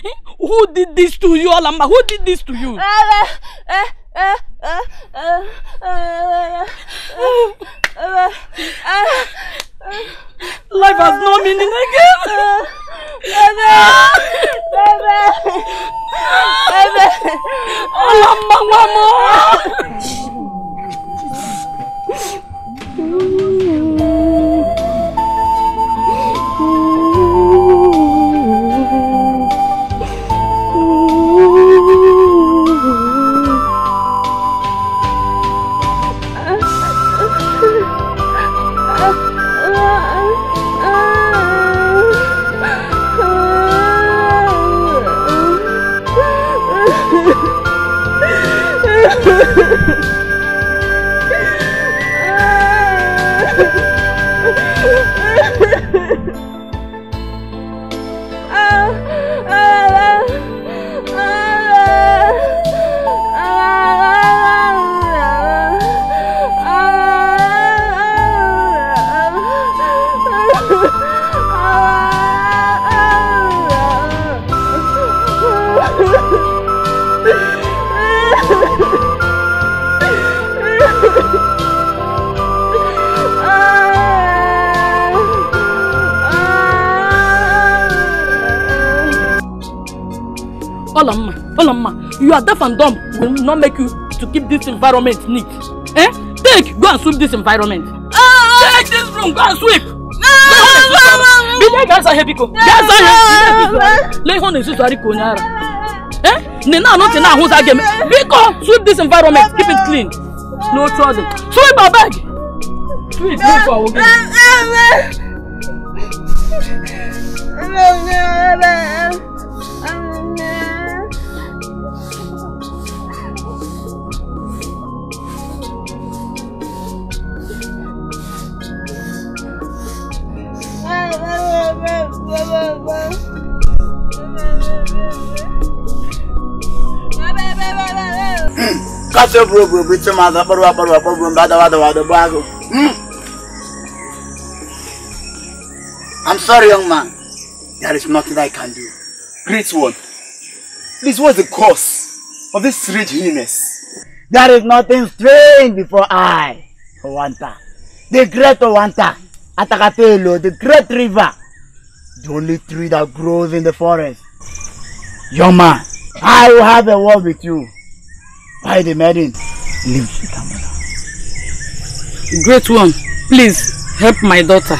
Eh? Who did this to you, Alamma? Who did this to you? Life has no meaning again. Bebe, bebe, bebe. mama. Ooh. you are deaf and dumb will not make you to keep this environment neat eh take go and sweep this environment ah. take this room go and sweep bile ga-asa ihe biko ga-asa ihe lee ihe ọ na-esusari ka onye ara eh nne na anọtị na ahụza gị biko sweep this environment keep it clean No. ọ dị sweep abeg sweep no for awụ No. No, no, no. Kátó gbogbo bí tí máa dọ́pọ̀rọ̀ wàpọ̀rọ̀ wàpọ̀rọ̀ bá dáwà dáwà dọ́gbọ́ àgọ́. I'm sorry young man, there is nothing I can do. Great one. this was the cause of this strange illness? There is nothing strange before I, Owanta. The great Owanta, Atakatelo, the great river. the only tree that grows in the forest. Your man, I will have a word with you. By the maiden, leave Sitamala. Great one, please help my daughter.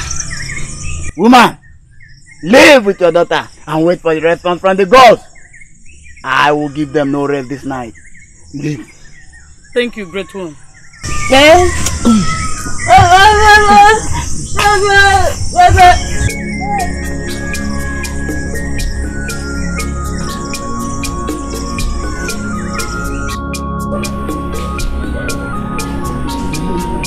Woman, live with your daughter and wait for the response from the gods. I will give them no rest this night. Leave. Thank you, great one. Yes.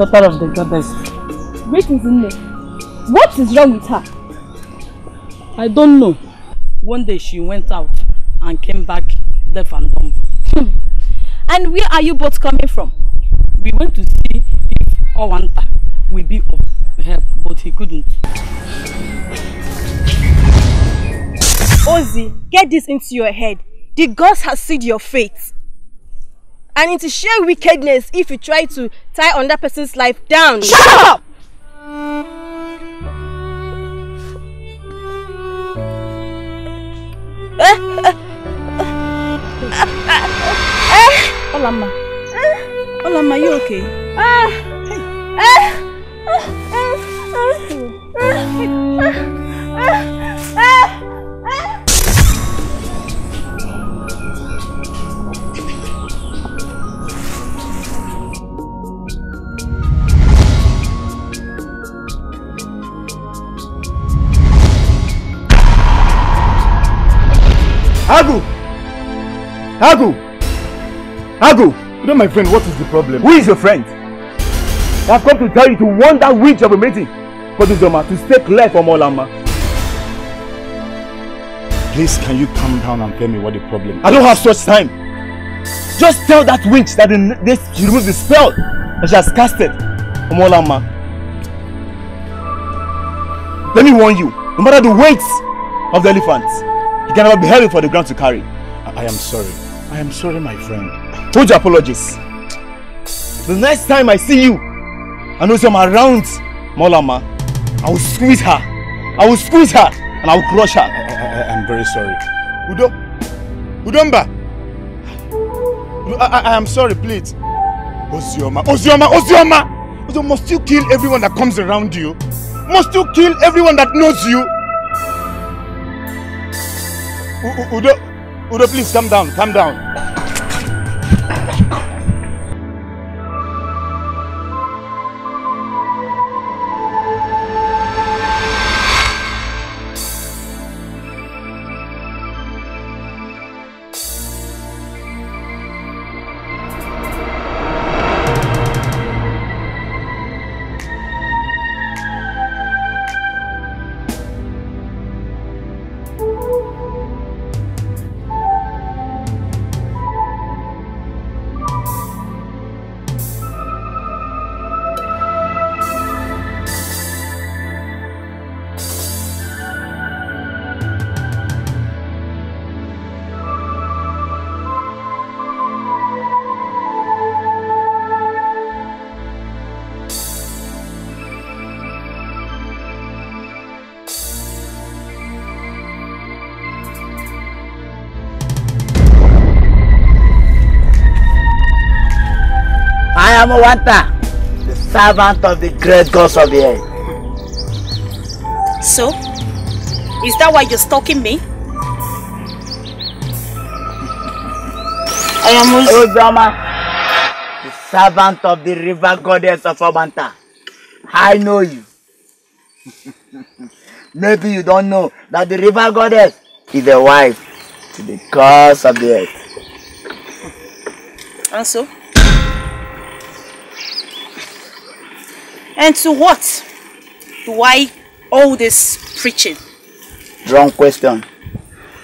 Daughter of the goddess. Great is in there. What is wrong with her? I don't know. One day she went out and came back deaf and dumb. Hmm. and where are you both coming from? We went to see if Owanta will be of help, but he couldn't. Ozzy, get this into your head. The gods have sealed your fate. and it is sheer wickedness if you try to tie another person's life down. Shut up! Olama. Olama, you okay? Hey. Agu! Agu! Agu! You know my friend, what is the problem? Who is your friend? I have come to tell you to warn that witch of a meeting for this drama to stay clear from Olama. Please, can you calm down and tell me what the problem is? I don't have such time. Just tell that witch that the, she removed the spell that she has casted from Olama. Let me warn you, no matter the weight of the elephants. You cannot be heavy for the ground to carry. I, I am sorry. I am sorry, my friend. Told you apologies. The next time I see you, I know some around Molama. I will squeeze her. I will squeeze her and I will crush her. I, I, I am very sorry. Udo, Udomba. I, I, I am sorry, please. Ozioma, Ozioma, Ozioma! Ozioma, must you kill everyone that comes around you? Must you kill everyone that knows you? Udo, Udo, please calm down, Calm down. Amawanta, the servant of the great gods of the earth. So, is that why you're stalking me? I am Uzoma, oh, the servant of the river goddess of Amanta. I know you. Maybe you don't know that the river goddess is a wife to the gods of the earth. And so? And to what do I all this preaching? Wrong question.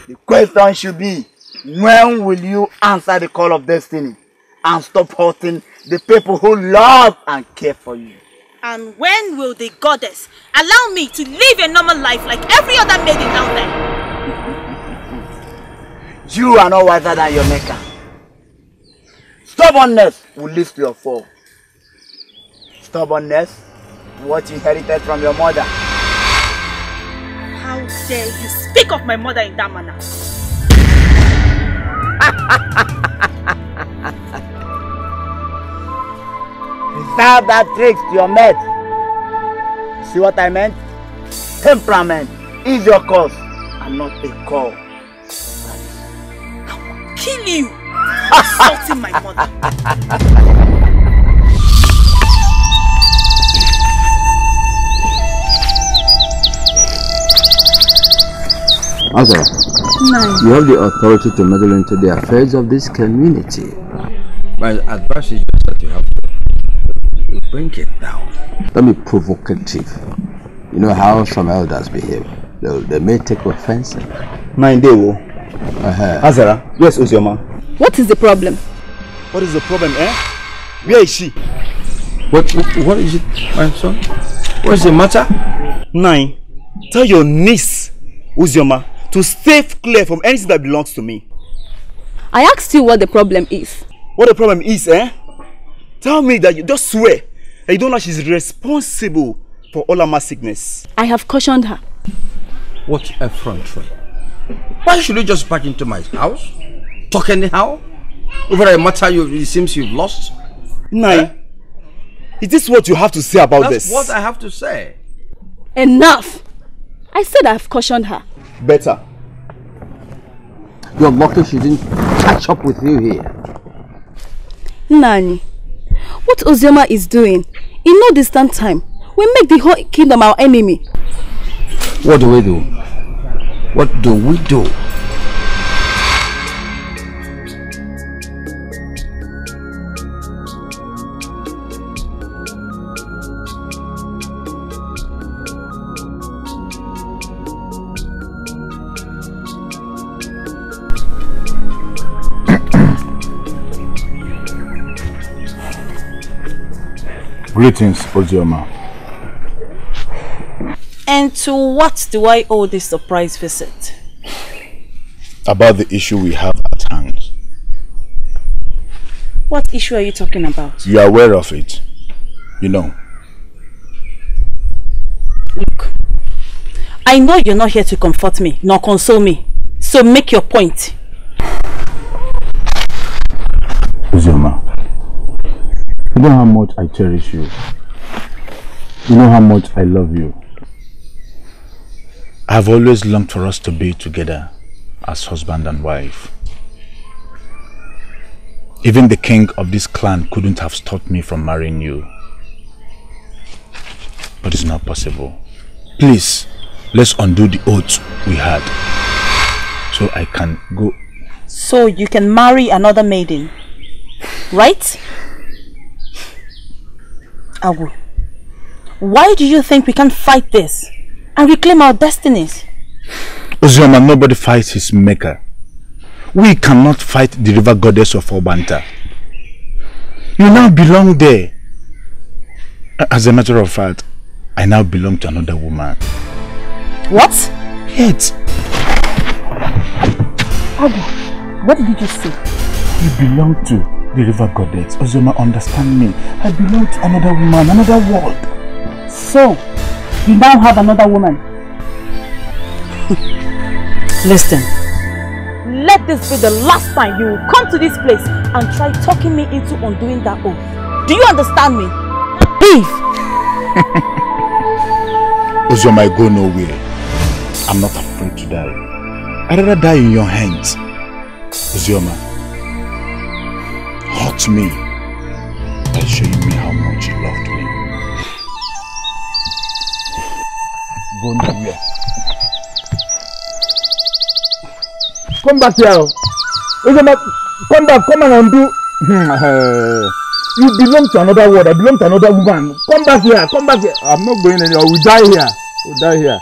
The question should be, when will you answer the call of destiny and stop hurting the people who love and care for you? And when will the goddess allow me to live a normal life like every other maiden out there? you are no wiser than your maker. Stubbornness will lead to your fall. Stubbornness what you inherited from your mother. How dare you speak of my mother in that manner? Without that trick to your mate. See what I meant? Temperament is your cause and not a call. I will kill you for insulting my mother. Okay. No. You have the authority to meddle into the affairs of this community. My advice is just that you have to bring it down. Don't be provocative. You know how some elders behave. They, they may take offense. Mind they will. Uh -huh. Azara, where's Uzioma? What is the problem? What is the problem, eh? Where is she? What, what, what is it, my son? What's the matter? Nine, tell your niece, Uzioma, to stay clear from anything that belongs to me. I asked you what the problem is. What the problem is, eh? Tell me that you just swear that you don't know she's responsible for all my sickness. I have cautioned her. What effrontery. Why should you just back into my house? Talk anyhow? Over a matter you, it seems you've lost? Nay. eh? is this what you have to say about That's this? That's what I have to say. Enough! I said I've cautioned her. Better. You're lucky she didn't catch up with you here. Nani, what Ozioma is doing in no distant time will make the whole kingdom our enemy. What do we do? What do we do? Greetings, Ozioma. And to what do I owe this surprise visit? About the issue we have at hand. What issue are you talking about? You are aware of it. You know. Look, I know you're not here to comfort me, nor console me. So make your point. Ozioma, you know how much I cherish you. You know how much I love you. I've always longed for us to be together as husband and wife. Even the king of this clan couldn't have stopped me from marrying you. But it's not possible. Please, let's undo the oath we had. So I can go. So you can marry another maiden, right? Agu, why do you think we can't fight this and reclaim our destinies? Ozioma, nobody fights his maker. We cannot fight the river goddess of Obanta. You now belong there. As a matter of fact, I now belong to another woman. What? Yet. Agu, what did you say? You belong to the river goddess. Ozoma, understand me. I belong to another woman, another world. So, you now have another woman. Listen. Let this be the last time you will come to this place and try talking me into undoing that oath. Do you understand me? Beef! Ozoma, I go nowhere. I'm not afraid to die. I'd rather die in your hands. Ozoma. hurt me by showing me how much you loved me. Go nowhere. Come back here. Come back, come and undo. you belong to another world, I belong to another woman. Come back here, come back here. I'm not going anywhere, we'll die here. We'll die here.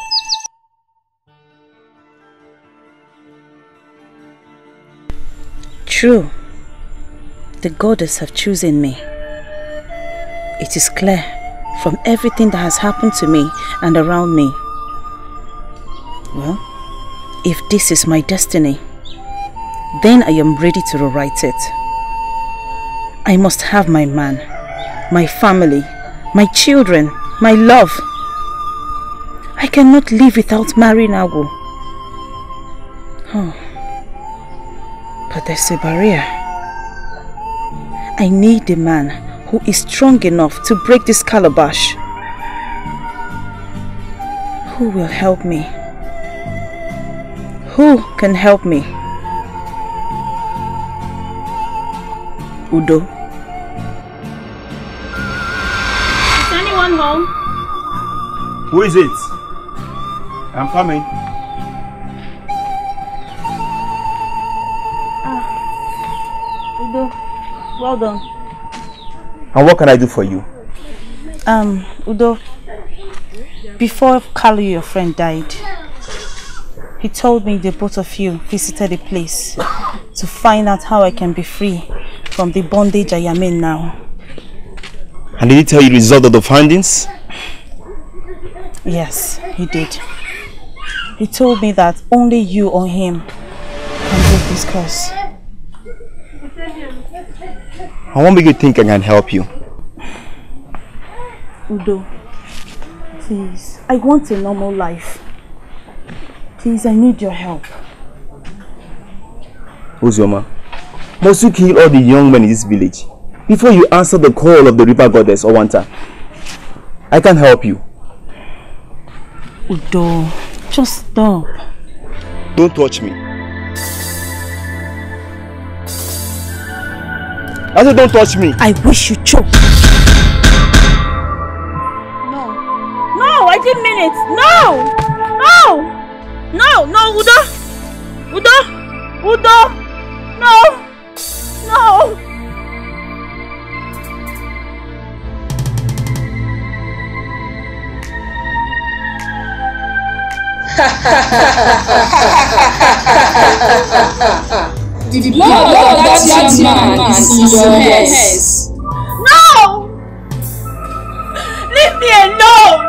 True. the goddess have chosen me. It is clear from everything that has happened to me and around me. Well, if this is my destiny, then I am ready to rewrite it. I must have my man, my family, my children, my love. I cannot live without marrying Agu. Oh, but there's a barrier. I need a man who is strong enough to break this calabash. Who will help me? Who can help me? Udo. Is anyone home? Who is it? I'm coming. Well done. And what can I do for you? Um, Udo, before Carlo, your friend, died, he told me the both of you visited the place to find out how I can be free from the bondage I am in now. And did he tell you the result of the findings? Yes, he did. He told me that only you or him can break this curse. I won't make you think I can help you. Udo, please, I want a normal life. Please, I need your help. Uzioma, must you kill all the young men in this village before you answer the call of the river goddess Owanta? I can help you. Udo, just stop. Don't touch me. I said, don't touch me. I wish you choke. No. No, I didn't mean it. No! No! No, no, Udo! Udo! Udo! No! No! Ha ha ha ha ha ha ha ha ha ha ha ha The, blood, of that, young man, is in your hands. No! Leave me alone!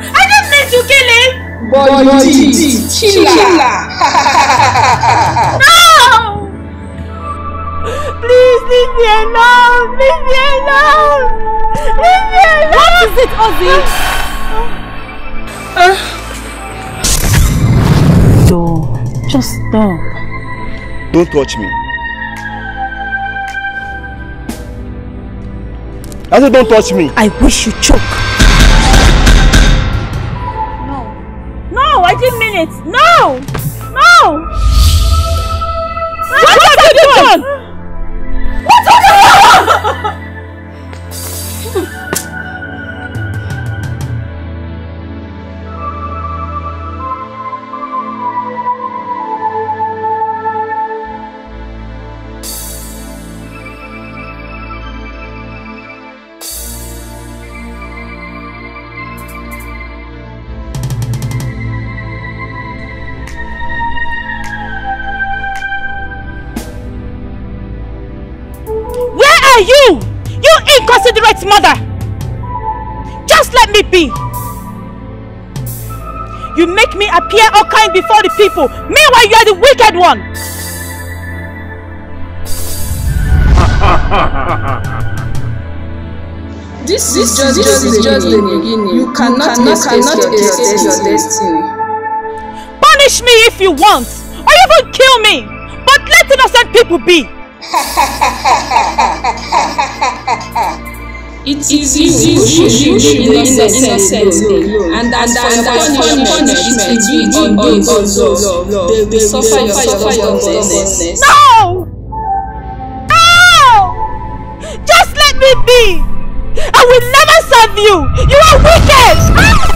I didn't mean to kill him! But, but you did. Killer! no! Please leave me alone! Leave me alone! Leave me alone! What is it, Ozzy? uh. Stop. Just stop. Don't touch me. I said, don't touch me. I wish you choke. No. No, I didn't mean it. No! No! What, what have you done? done? What have you done? you? You inconsiderate mother! Just let me be! You make me appear all kind before the people. Meanwhile, you are the wicked one! this is just, this just, is just the beginning. You cannot, you cannot, cannot escape, escape your destiny. Punish me if you want, or even kill me, but let innocent people be. It is easy to shoot the innocent alone, and as for punishment, it will be on God's law. They will suffer your stubbornness. No! No! Just let me be! I will never serve you! You are wicked!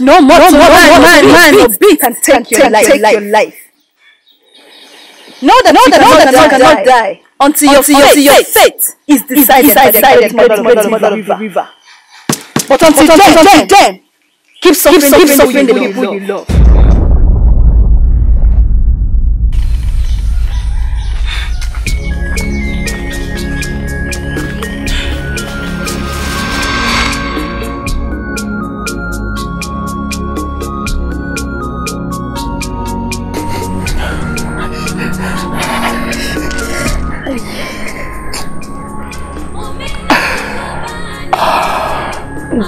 no more no man, man, man, man, beat, beat, and take, and your, life, take life. your life. Know that, know that, know that, that cannot die, die until, until your, fate, your fate, is decided, is decided by the great mother, mother, mother, mother river. river. But until, but until then, then, then, keep suffering, keep suffering the people you love. You love.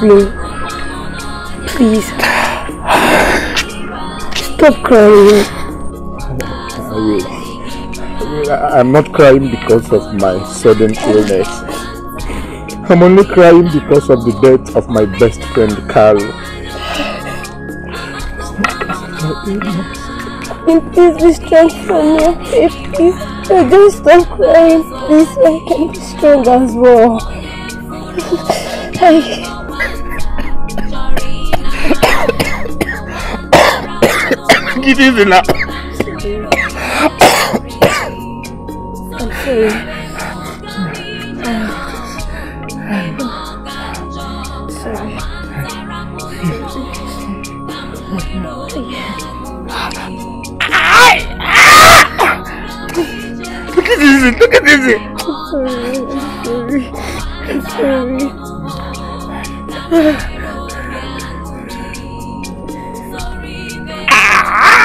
me. Please. Stop crying. I will. I'm not crying because of my sudden illness. I'm only crying because of the death of my best friend, Carl. please be strong for me, please. just uh, stop crying, please. I can be strong as well. I... kitties in Look at this, look at this. I'm sorry, I'm sorry. I'm sorry.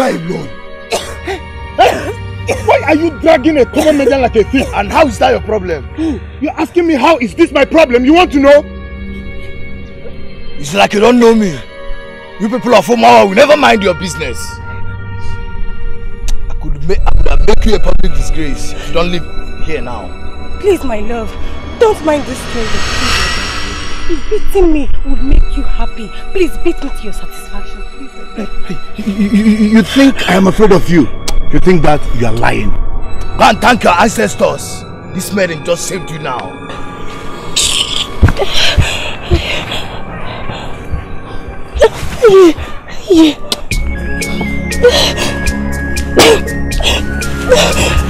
cry alone. Why are you dragging a common man like a thief? And how is that your problem? You're asking me how is this my problem? You want to know? It's like you don't know me. You people of Omawa will never mind your business. I could, make, I could make you a public disgrace. You don't live here now. Please, my love, don't mind this thing. Beating me would make you happy. Please beat me to your satisfaction. You think I am afraid of you? You think that you are lying? Go and thank your ancestors. This man just saved you now. Yeah.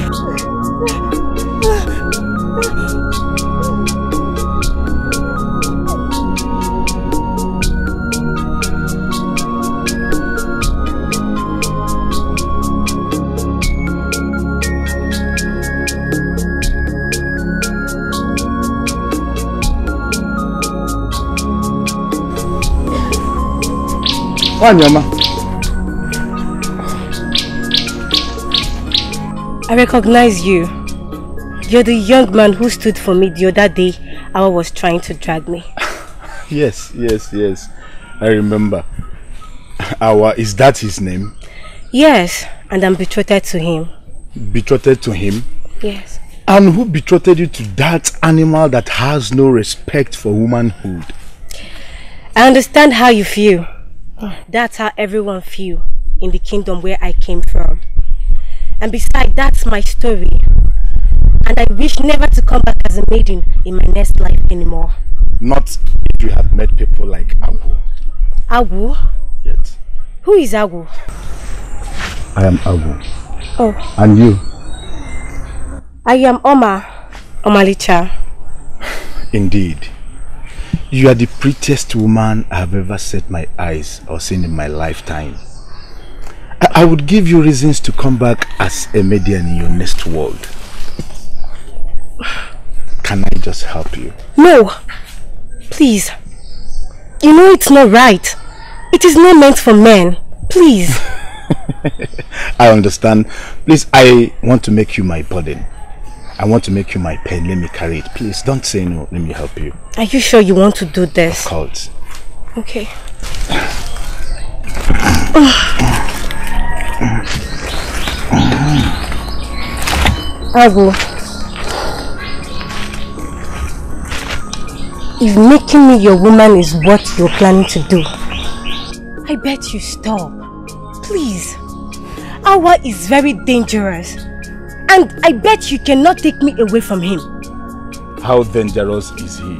I recognize you. You're the young man who stood for me the other day Awa was trying to drag me. yes, yes, yes. I remember. Awa, is that his name? Yes, and I'm betrothed to him. Betrothed to him? Yes. And who betrothed you to that animal that has no respect for womanhood? I understand how you feel. That's how everyone feel in the kingdom where I came from. And besides, that's my story. And I wish never to come back as a maiden in my next life anymore. Not if you have met people like Agu. Agu? Yes. Who is Agu? I am Agu. Oh. And you? I am Oma Omalicha. Indeed. You are the prettiest woman I've ever set my eyes or seen in my lifetime. I, I would give you reasons to come back as a median in your next world. Can I just help you? No, please. You know it's not right. It is not meant for men. Please. I understand. Please, I want to make you my pudding. I want to make you my pen. Let me carry it. Please don't say no. Let me help you. Are you sure you want to do this? Of course. Okay. Agu. If making me your woman is what you're planning to do, I bet you stop. Please. Awa is very dangerous. And I bet you cannot take me away from him. How dangerous is he?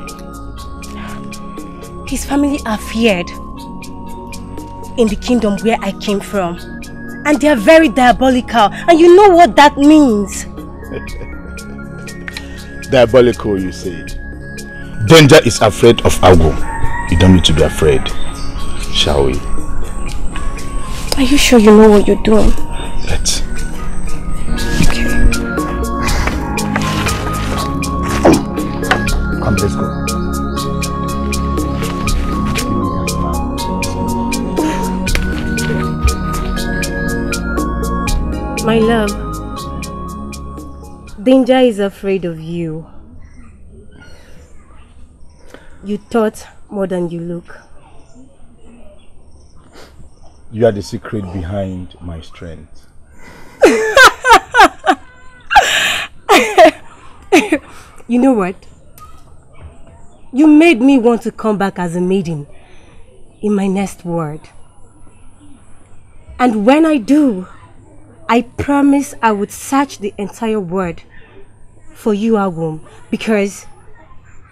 His family are feared in the kingdom where I came from. And they are very diabolical. And you know what that means. diabolical, you said. Danger is afraid of Agu. You don't need to be afraid, shall we? Are you sure you know what you're doing? Let's. let's go. My love, danger is afraid of you. You thought more than you look. You are the secret behind my strength. you know what? You made me want to come back as a maiden in my next world. And when I do, I promise I would search the entire world for you, Agum, because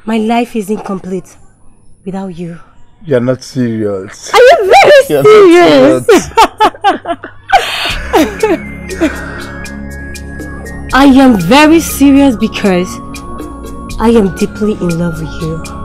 my life is incomplete without you. You're not serious. I am very You're serious. I am very serious because I am deeply in love with you.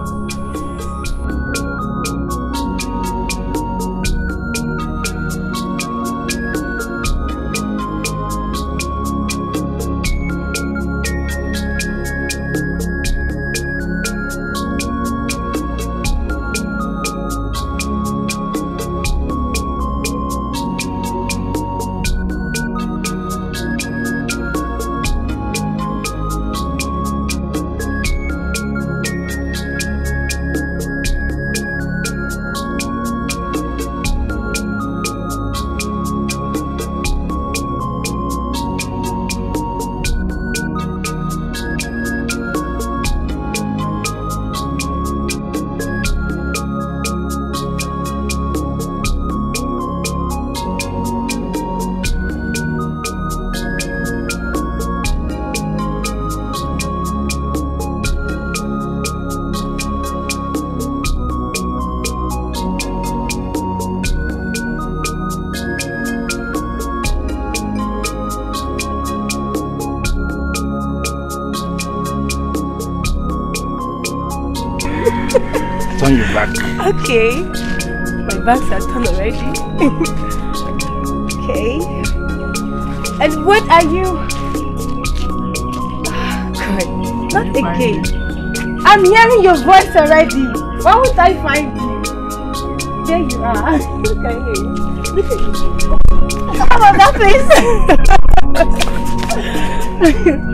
bags are done already. okay. And what are you? God, not again. I'm hearing your voice already. Why would I find you? There you are. Okay. Look at you. Come on, that place.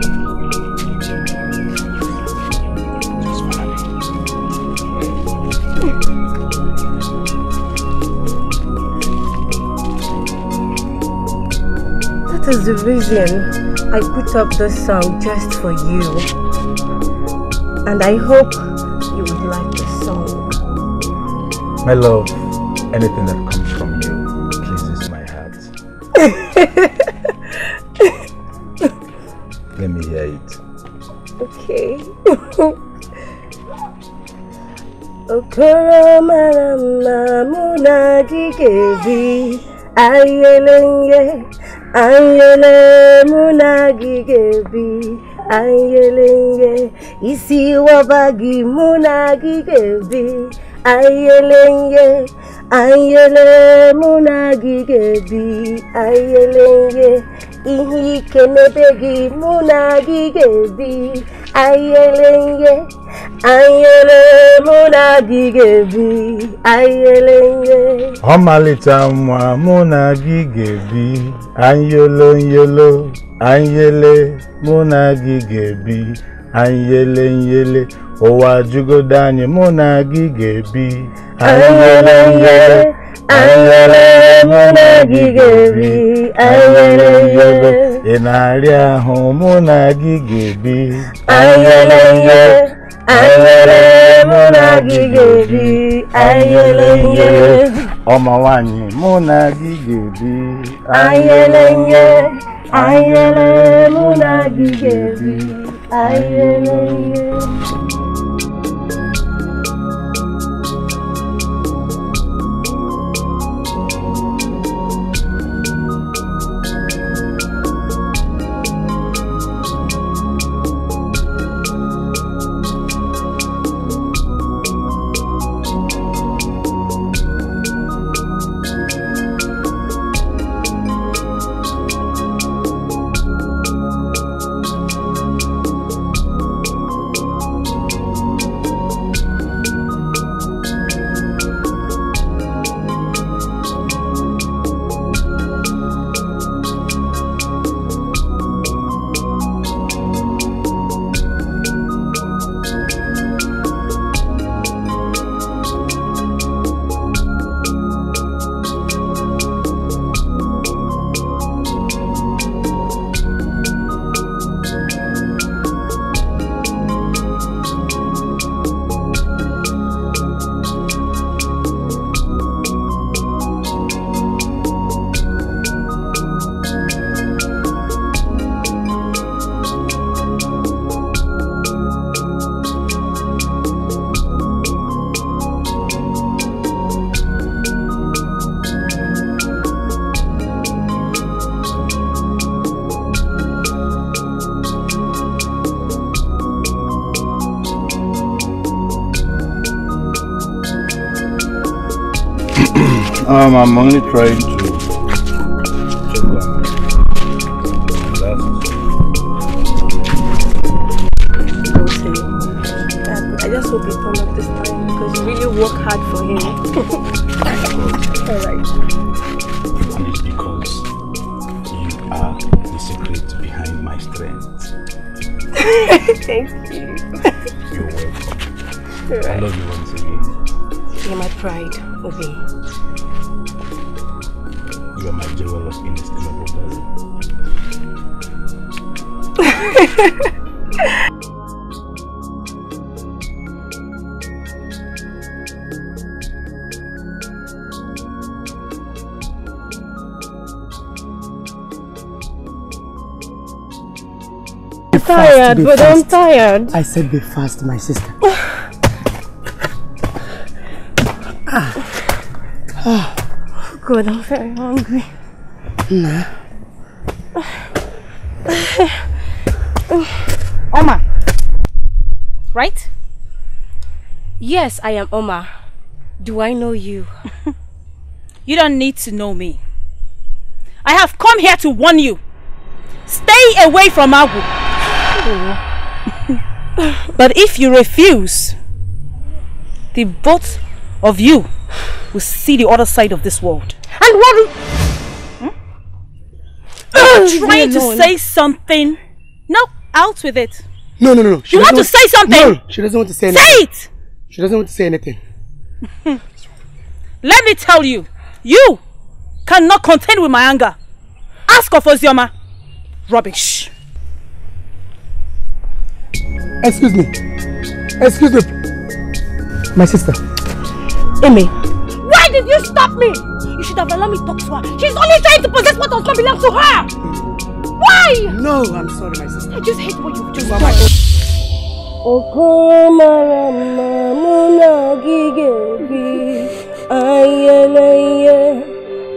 is the reason I put up this song just for you. And I hope you would like the song. My love, anything that comes. ọba gị mụ na gị ga-ebi ayele ihe ayele mụ na gị ga-ebi ayele ihe ike n'ebe gị mụ na gị ga-ebi ayele ihe ayele mụ na gị ga-ebi ayele ihe ọmalịcha nwa mụ na gị ga-ebi anyelo nyelo mụ na gị ga-ebi anyị yele nyele ụwa jụgodo anyị mụ na gị ga-ebi anyị yele nyele anyị yele mụ na gị ga-ebi anyị yele nyele ị na-arịa ahụ mụ na gị ga-ebi anyị yele nyele anyị yele mụ na gị ga-ebi anyị yele nyele ọma nwanyị mụ na gị ga-ebi anyị yele nyele anyị yele mụ na gị ga-ebi I I'm only trying tired, but fast. I'm tired. I said be fast, my sister. ah. oh. God, I'm very hungry. Nah. Oma. Right? Yes, I am Oma. Do I know you? you don't need to know me. I have come here to warn you. Stay away from Agu. but if you refuse, the both of you will see the other side of this world. And what? Hmm? Uh, trying to say something. No, out with it. No, no, no. no. She you want to say something? No, she doesn't want to say anything. Say it! She doesn't want to say anything. Let me tell you, you cannot contend with my anger. Ask of Ozioma. Rubbish. excuse me excuse me my sister. Amy, why did you stop me? You should have allowed me to talk to her. She's only trying to possess what does not belong to her. Why? No, I'm sorry, my sister. I just hate what you've just done. mama, mamuna gigebi ayeleye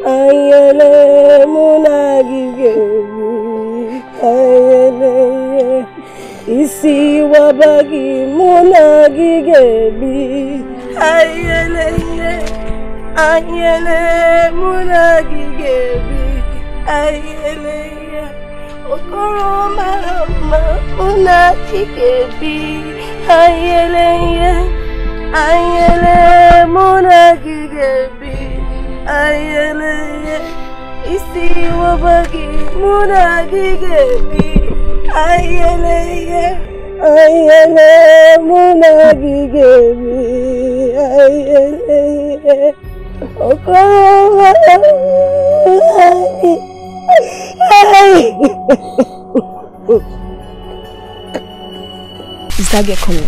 ayele muna gigebi ay. isi wabaghi mụ na gị ga-ebi anyelele anyele mụ na gị ga-ebi anyelele okoro mara mma mụ na isi ayẹlẹyẹ ayẹlẹ múnagígé mi ayẹlẹyẹ ọkọọrọ ayẹ. Is that get coming?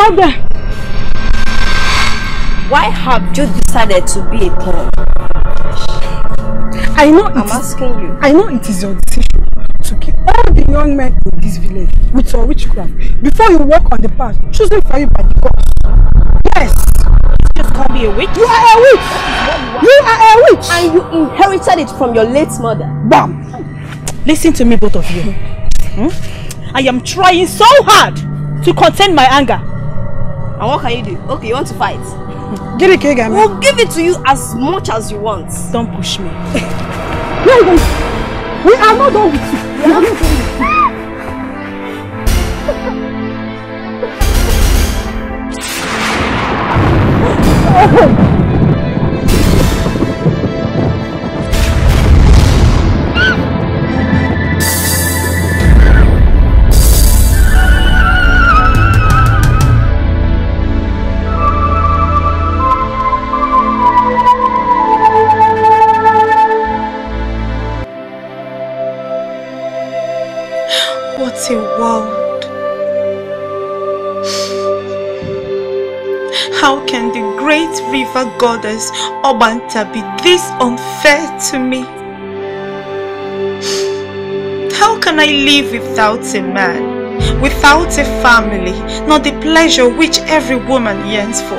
Stop Why have you decided to be a thorn? I know I'm asking you. I know it is your decision to kill all the young men in this village with your witchcraft before you walk on the path chosen for you by the gods. Yes. You just can't be a witch. You are a witch. You, you are a witch. And you inherited it from your late mother. Bam. Listen to me, both of you. Hmm? I am trying so hard to contain my anger. And what can you do? Okay, you want to fight? Give it, Kegami. We'll give it to you as much as you want. Don't push me. We are not done with you. We are not done with you. Oh! The world. How can the great river goddess Obanta be this unfair to me? How can I live without a man, without a family, not the pleasure which every woman yearns for?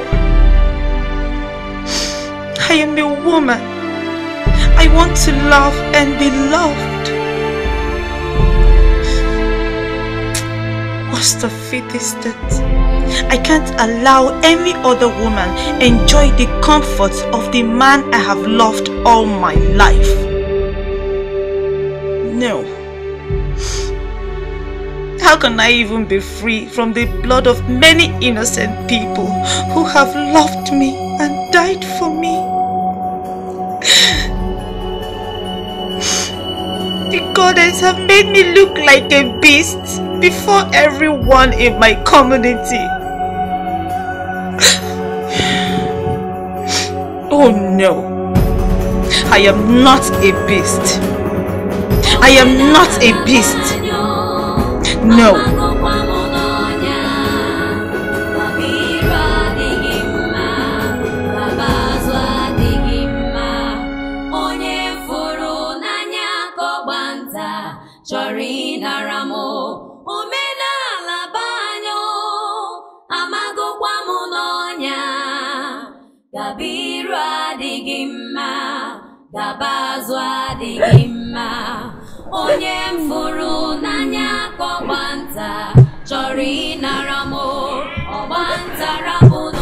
I am a woman. I want to love and be loved. must defeat this I can't allow any other woman enjoy the comforts of the man I have loved all my life. No. How can I even be free from the blood of many innocent people who have loved me and died for me? the goddess have made me look like a beast before everyone in my community. oh no. I am not a beast. I am not a beast. No. dabazụ adịghị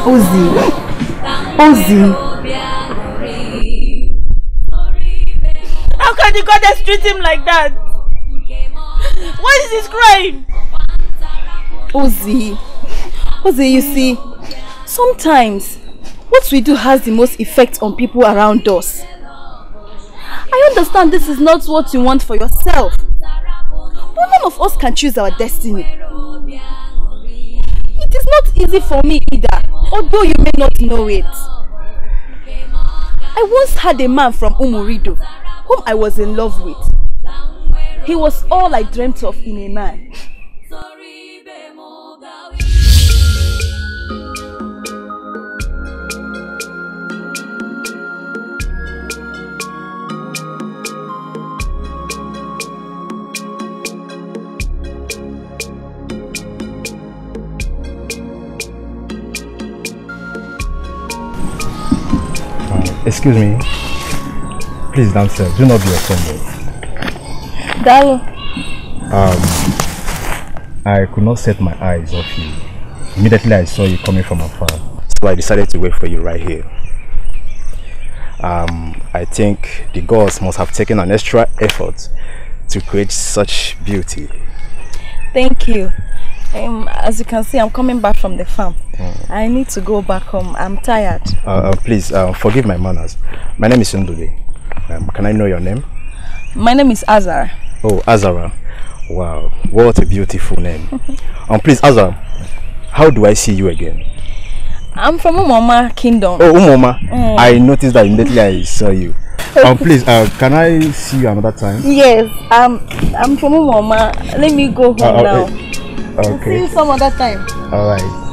ozi ozi How can the goddess treat him like that? What is he crying? Ozi, Ozi, you see, sometimes what we do has the most effect on people around us. I understand this is not what you want for yourself. But none of us can choose our destiny. It is not easy for me either, although you may not know it. I once had a man from Umurido, whom I was in love with. He was all I dreamt of in a man. Excuse me. Please, say. do not be offended. Darling. Um, I could not set my eyes off you. Immediately I saw you coming from afar. So I decided to wait for you right here. Um, I think the gods must have taken an extra effort to create such beauty. Thank you. Um, as you can see, I'm coming back from the farm. Mm. I need to go back home. I'm tired. Uh, uh, please, uh, forgive my manners. My name is Ndule. Um, can I know your name? My name is Azara. Oh, Azara. Wow, what a beautiful name. um, please, Azara, how do I see you again? I'm from Umoma Kingdom. Oh, Umoma. Mm. I noticed that immediately I saw you. um, please, uh, can I see you another time? Yes, um, I'm from Umoma. Let me go uh, home uh, now. Uh, Okay. will see you some other time. All right.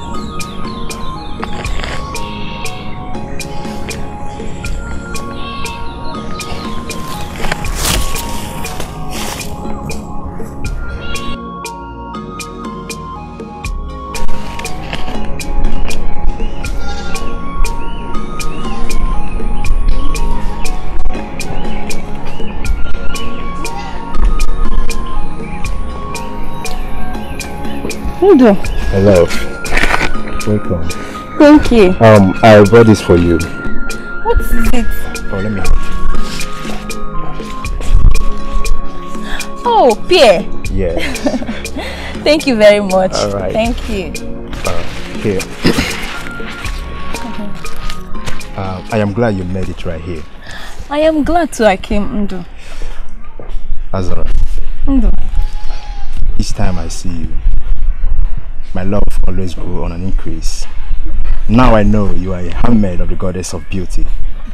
Hello. Hello. Welcome. Thank you. Um, I bought this for you. What is it? Oh, let me. Oh, Pierre. Yes. Thank you very much. All right. Thank you. Uh, here. uh, I am glad you made it right here. I am glad too I came, Ndo. Azara. Each time I see you, my love always grew on an increase. Now I know you are a handmaid of the goddess of beauty.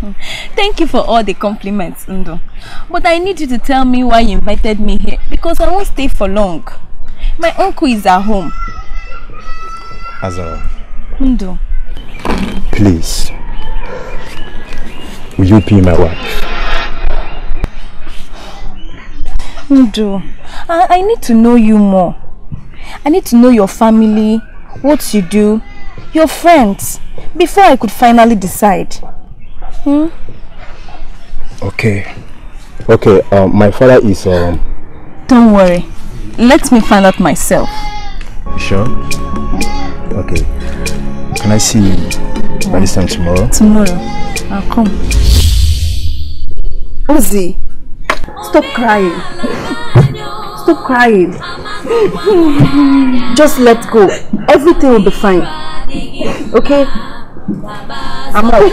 Thank you for all the compliments, Ndo. But I need you to tell me why you invited me here because I won't stay for long. My uncle is at home. Azara. Ndo. Please. Will you be my wife? Ndo, I, I need to know you more. I need to know your family, what you do, your friends, before I could finally decide. Hmm? Okay. Okay, um, my father is... Um... Don't worry. Let me find out myself. You sure? Okay. Can I see you by this time tomorrow? Tomorrow. I'll come. Ozzy, stop crying. stop crying. Just let go. Everything will be fine. Okay? I'm out.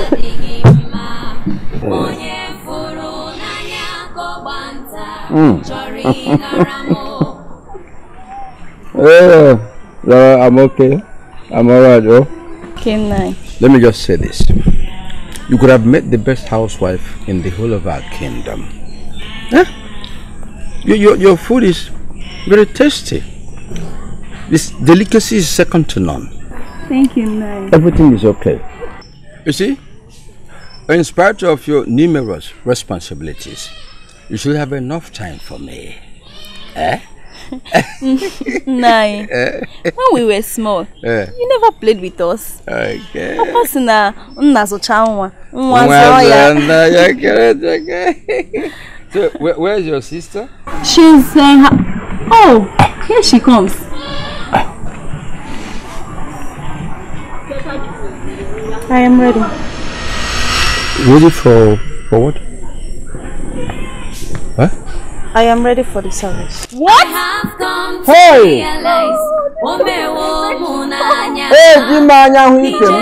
mm. I'm okay. I'm alright, oh. Okay, Let me just say this. You could have met the best housewife in the whole of our kingdom. Huh? Eh? Your, your, your food is very tasty. This delicacy is second to none. Thank you, Nai. Everything is okay. You see, in spite of your numerous responsibilities, you should have enough time for me. Eh? Nai, eh? when we were small, eh? you never played with us. Okay. Papa So, where, where is your sister? She's saying. uh, Oh, here she comes. I am ready. Ready for, for what? Huh? I am ready for the service. What? Hey! Eji oh, m anya hụ ike m.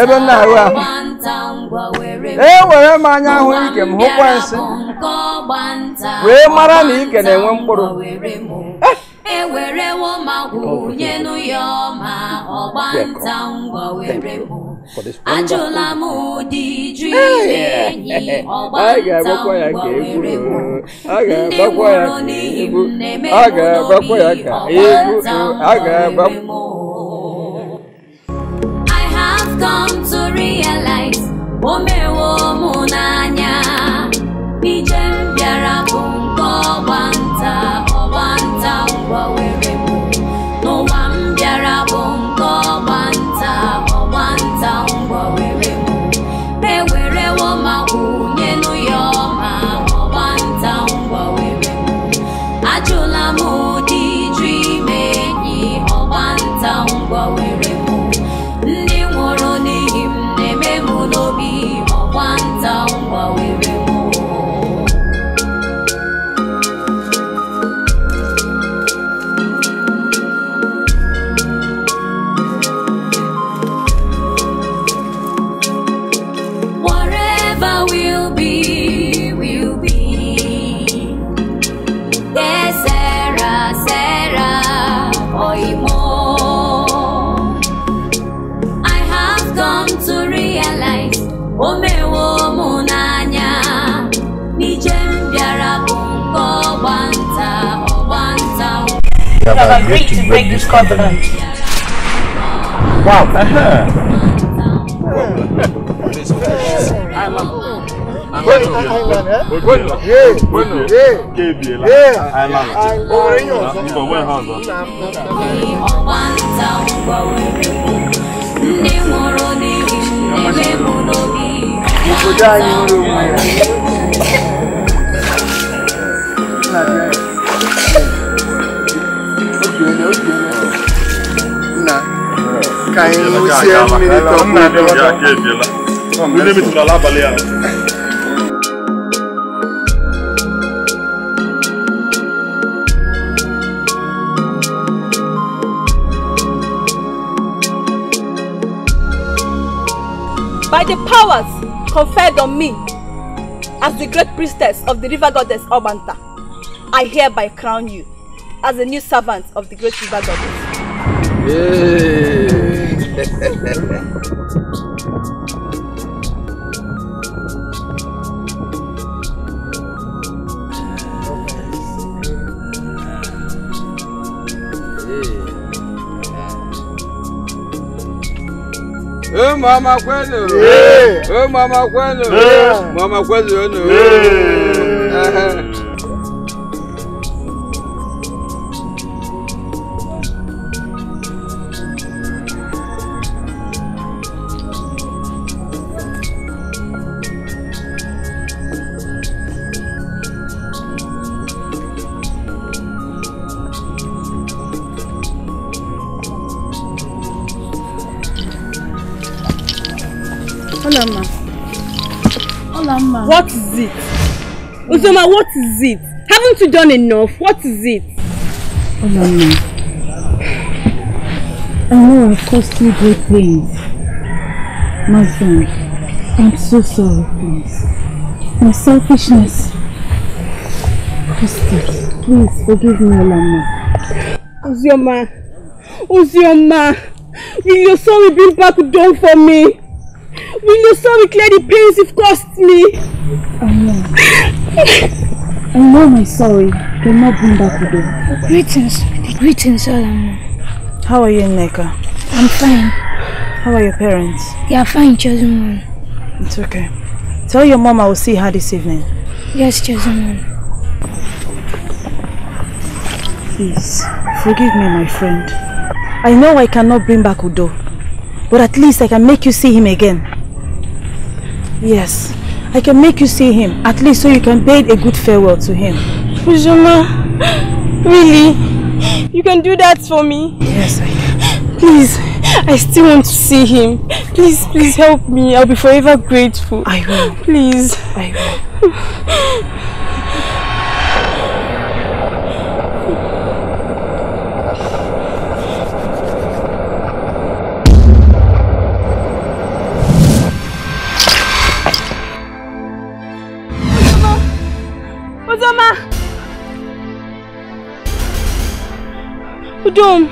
Ebe m ahụ arụ ahụ. Ewere m anya hụ ike m hụkwa nsị. Wee mara na ike na-enwe mkpụrụ. ewerewo ma wụnye ọma were bụ ajụla m ụdị jụ enyi were bụ ndị n'ihi m na-eme n'obi were m I have come to realize o mewo n'anya have, have agreed, agreed to break this covenant. Wow. Uh -huh. I'm You by the powers conferred on me as the great priestess of the river goddess Obanta, I hereby crown you as a new servant of the great river goddess. Ee mama kwenu. Ee mama kwenu. Mama kwenu. Ee. is it? Haven't you done enough? What is it? Oh, Mommy. I know I've caused you great things, My son, I'm so sorry, please. My selfishness. Christy, please forgive me, Olama. Uzioma, Uzioma, will your sorry bring back down for me? Will your sorry clear the pains you've caused me? Amen. I know my sorry cannot bring back Udo. Greetings. Greetings, Solomon. How are you, Neka? I'm fine. How are your parents? They are fine, Chosen It's okay. Tell your mom I will see her this evening. Yes, Chosen Please, forgive me, my friend. I know I cannot bring back Udo, but at least I can make you see him again. Yes, I can make you see him, at least so you can bid a good farewell to him. Fujima, really? You can do that for me? Yes, I can. Please, I still want to see him. Please, please help me. I'll be forever grateful. I will. Please. I will. Udom!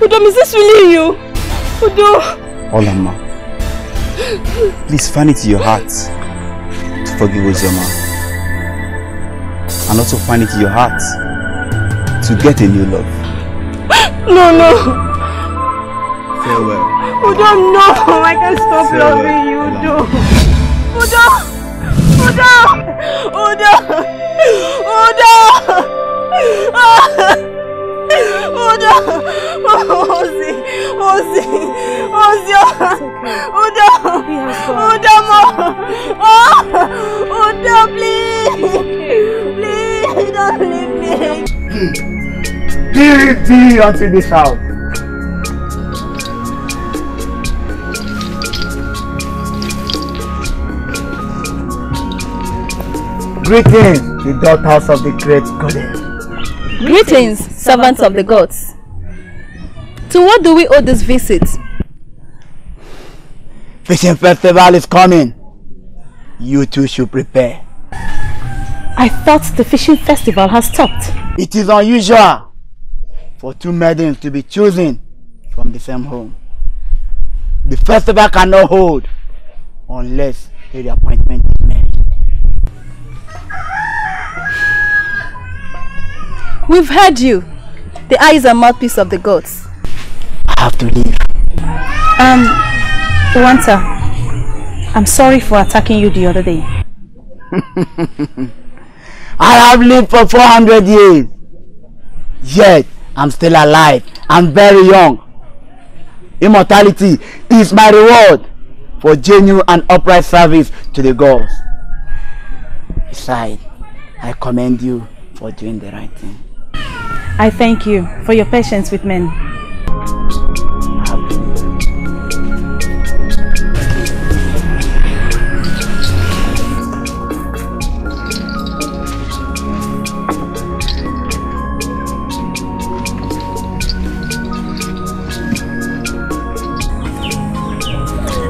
Udom, is this really you? Udom! Olama, please find it in your heart to forgive Uzoma. And also find it in your heart to get a new love. No, no! Farewell. Udom, no! I can't stop Farewell. loving you, Udom! Udom! Udom! Udom! Udom! Udo! Ozi! Ozi! Ozi! Udo! Udo mo! Udo, please! Please, don't leave me! Give me until this house. Greetings, the daughters of the great goddess. Greetings, servants of the gods. To what do we owe this visit? Fishing festival is coming. You two should prepare. I thought the fishing festival has stopped. It is unusual for two maidens to be chosen from the same home. The festival cannot hold unless the appointment We've heard you. The eyes are mouthpiece of the gods. I have to leave. Um, Wanta, I'm sorry for attacking you the other day. I have lived for 400 years. Yet, I'm still alive. I'm very young. Immortality is my reward for genuine and upright service to the gods. Besides, I commend you for doing the right thing. I thank you for your patience with men.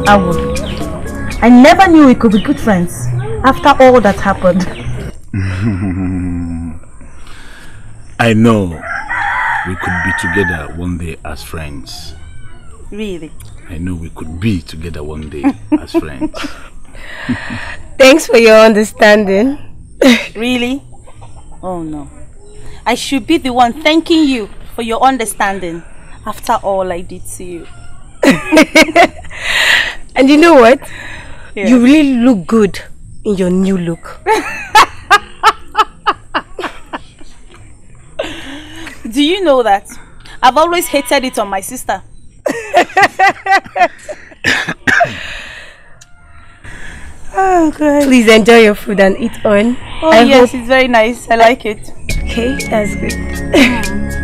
I would. I never knew we could be good friends after all that happened. I know we could be together one day as friends. Really? I know we could be together one day as friends. Thanks for your understanding. really? Oh no. I should be the one thanking you for your understanding after all I did to you. and you know what? Yeah. You really look good in your new look. Do you know that? I've always hated it on my sister. oh god. Please enjoy your food and eat on. Oh I yes, hope... it's very nice. I like it. Okay, that's good.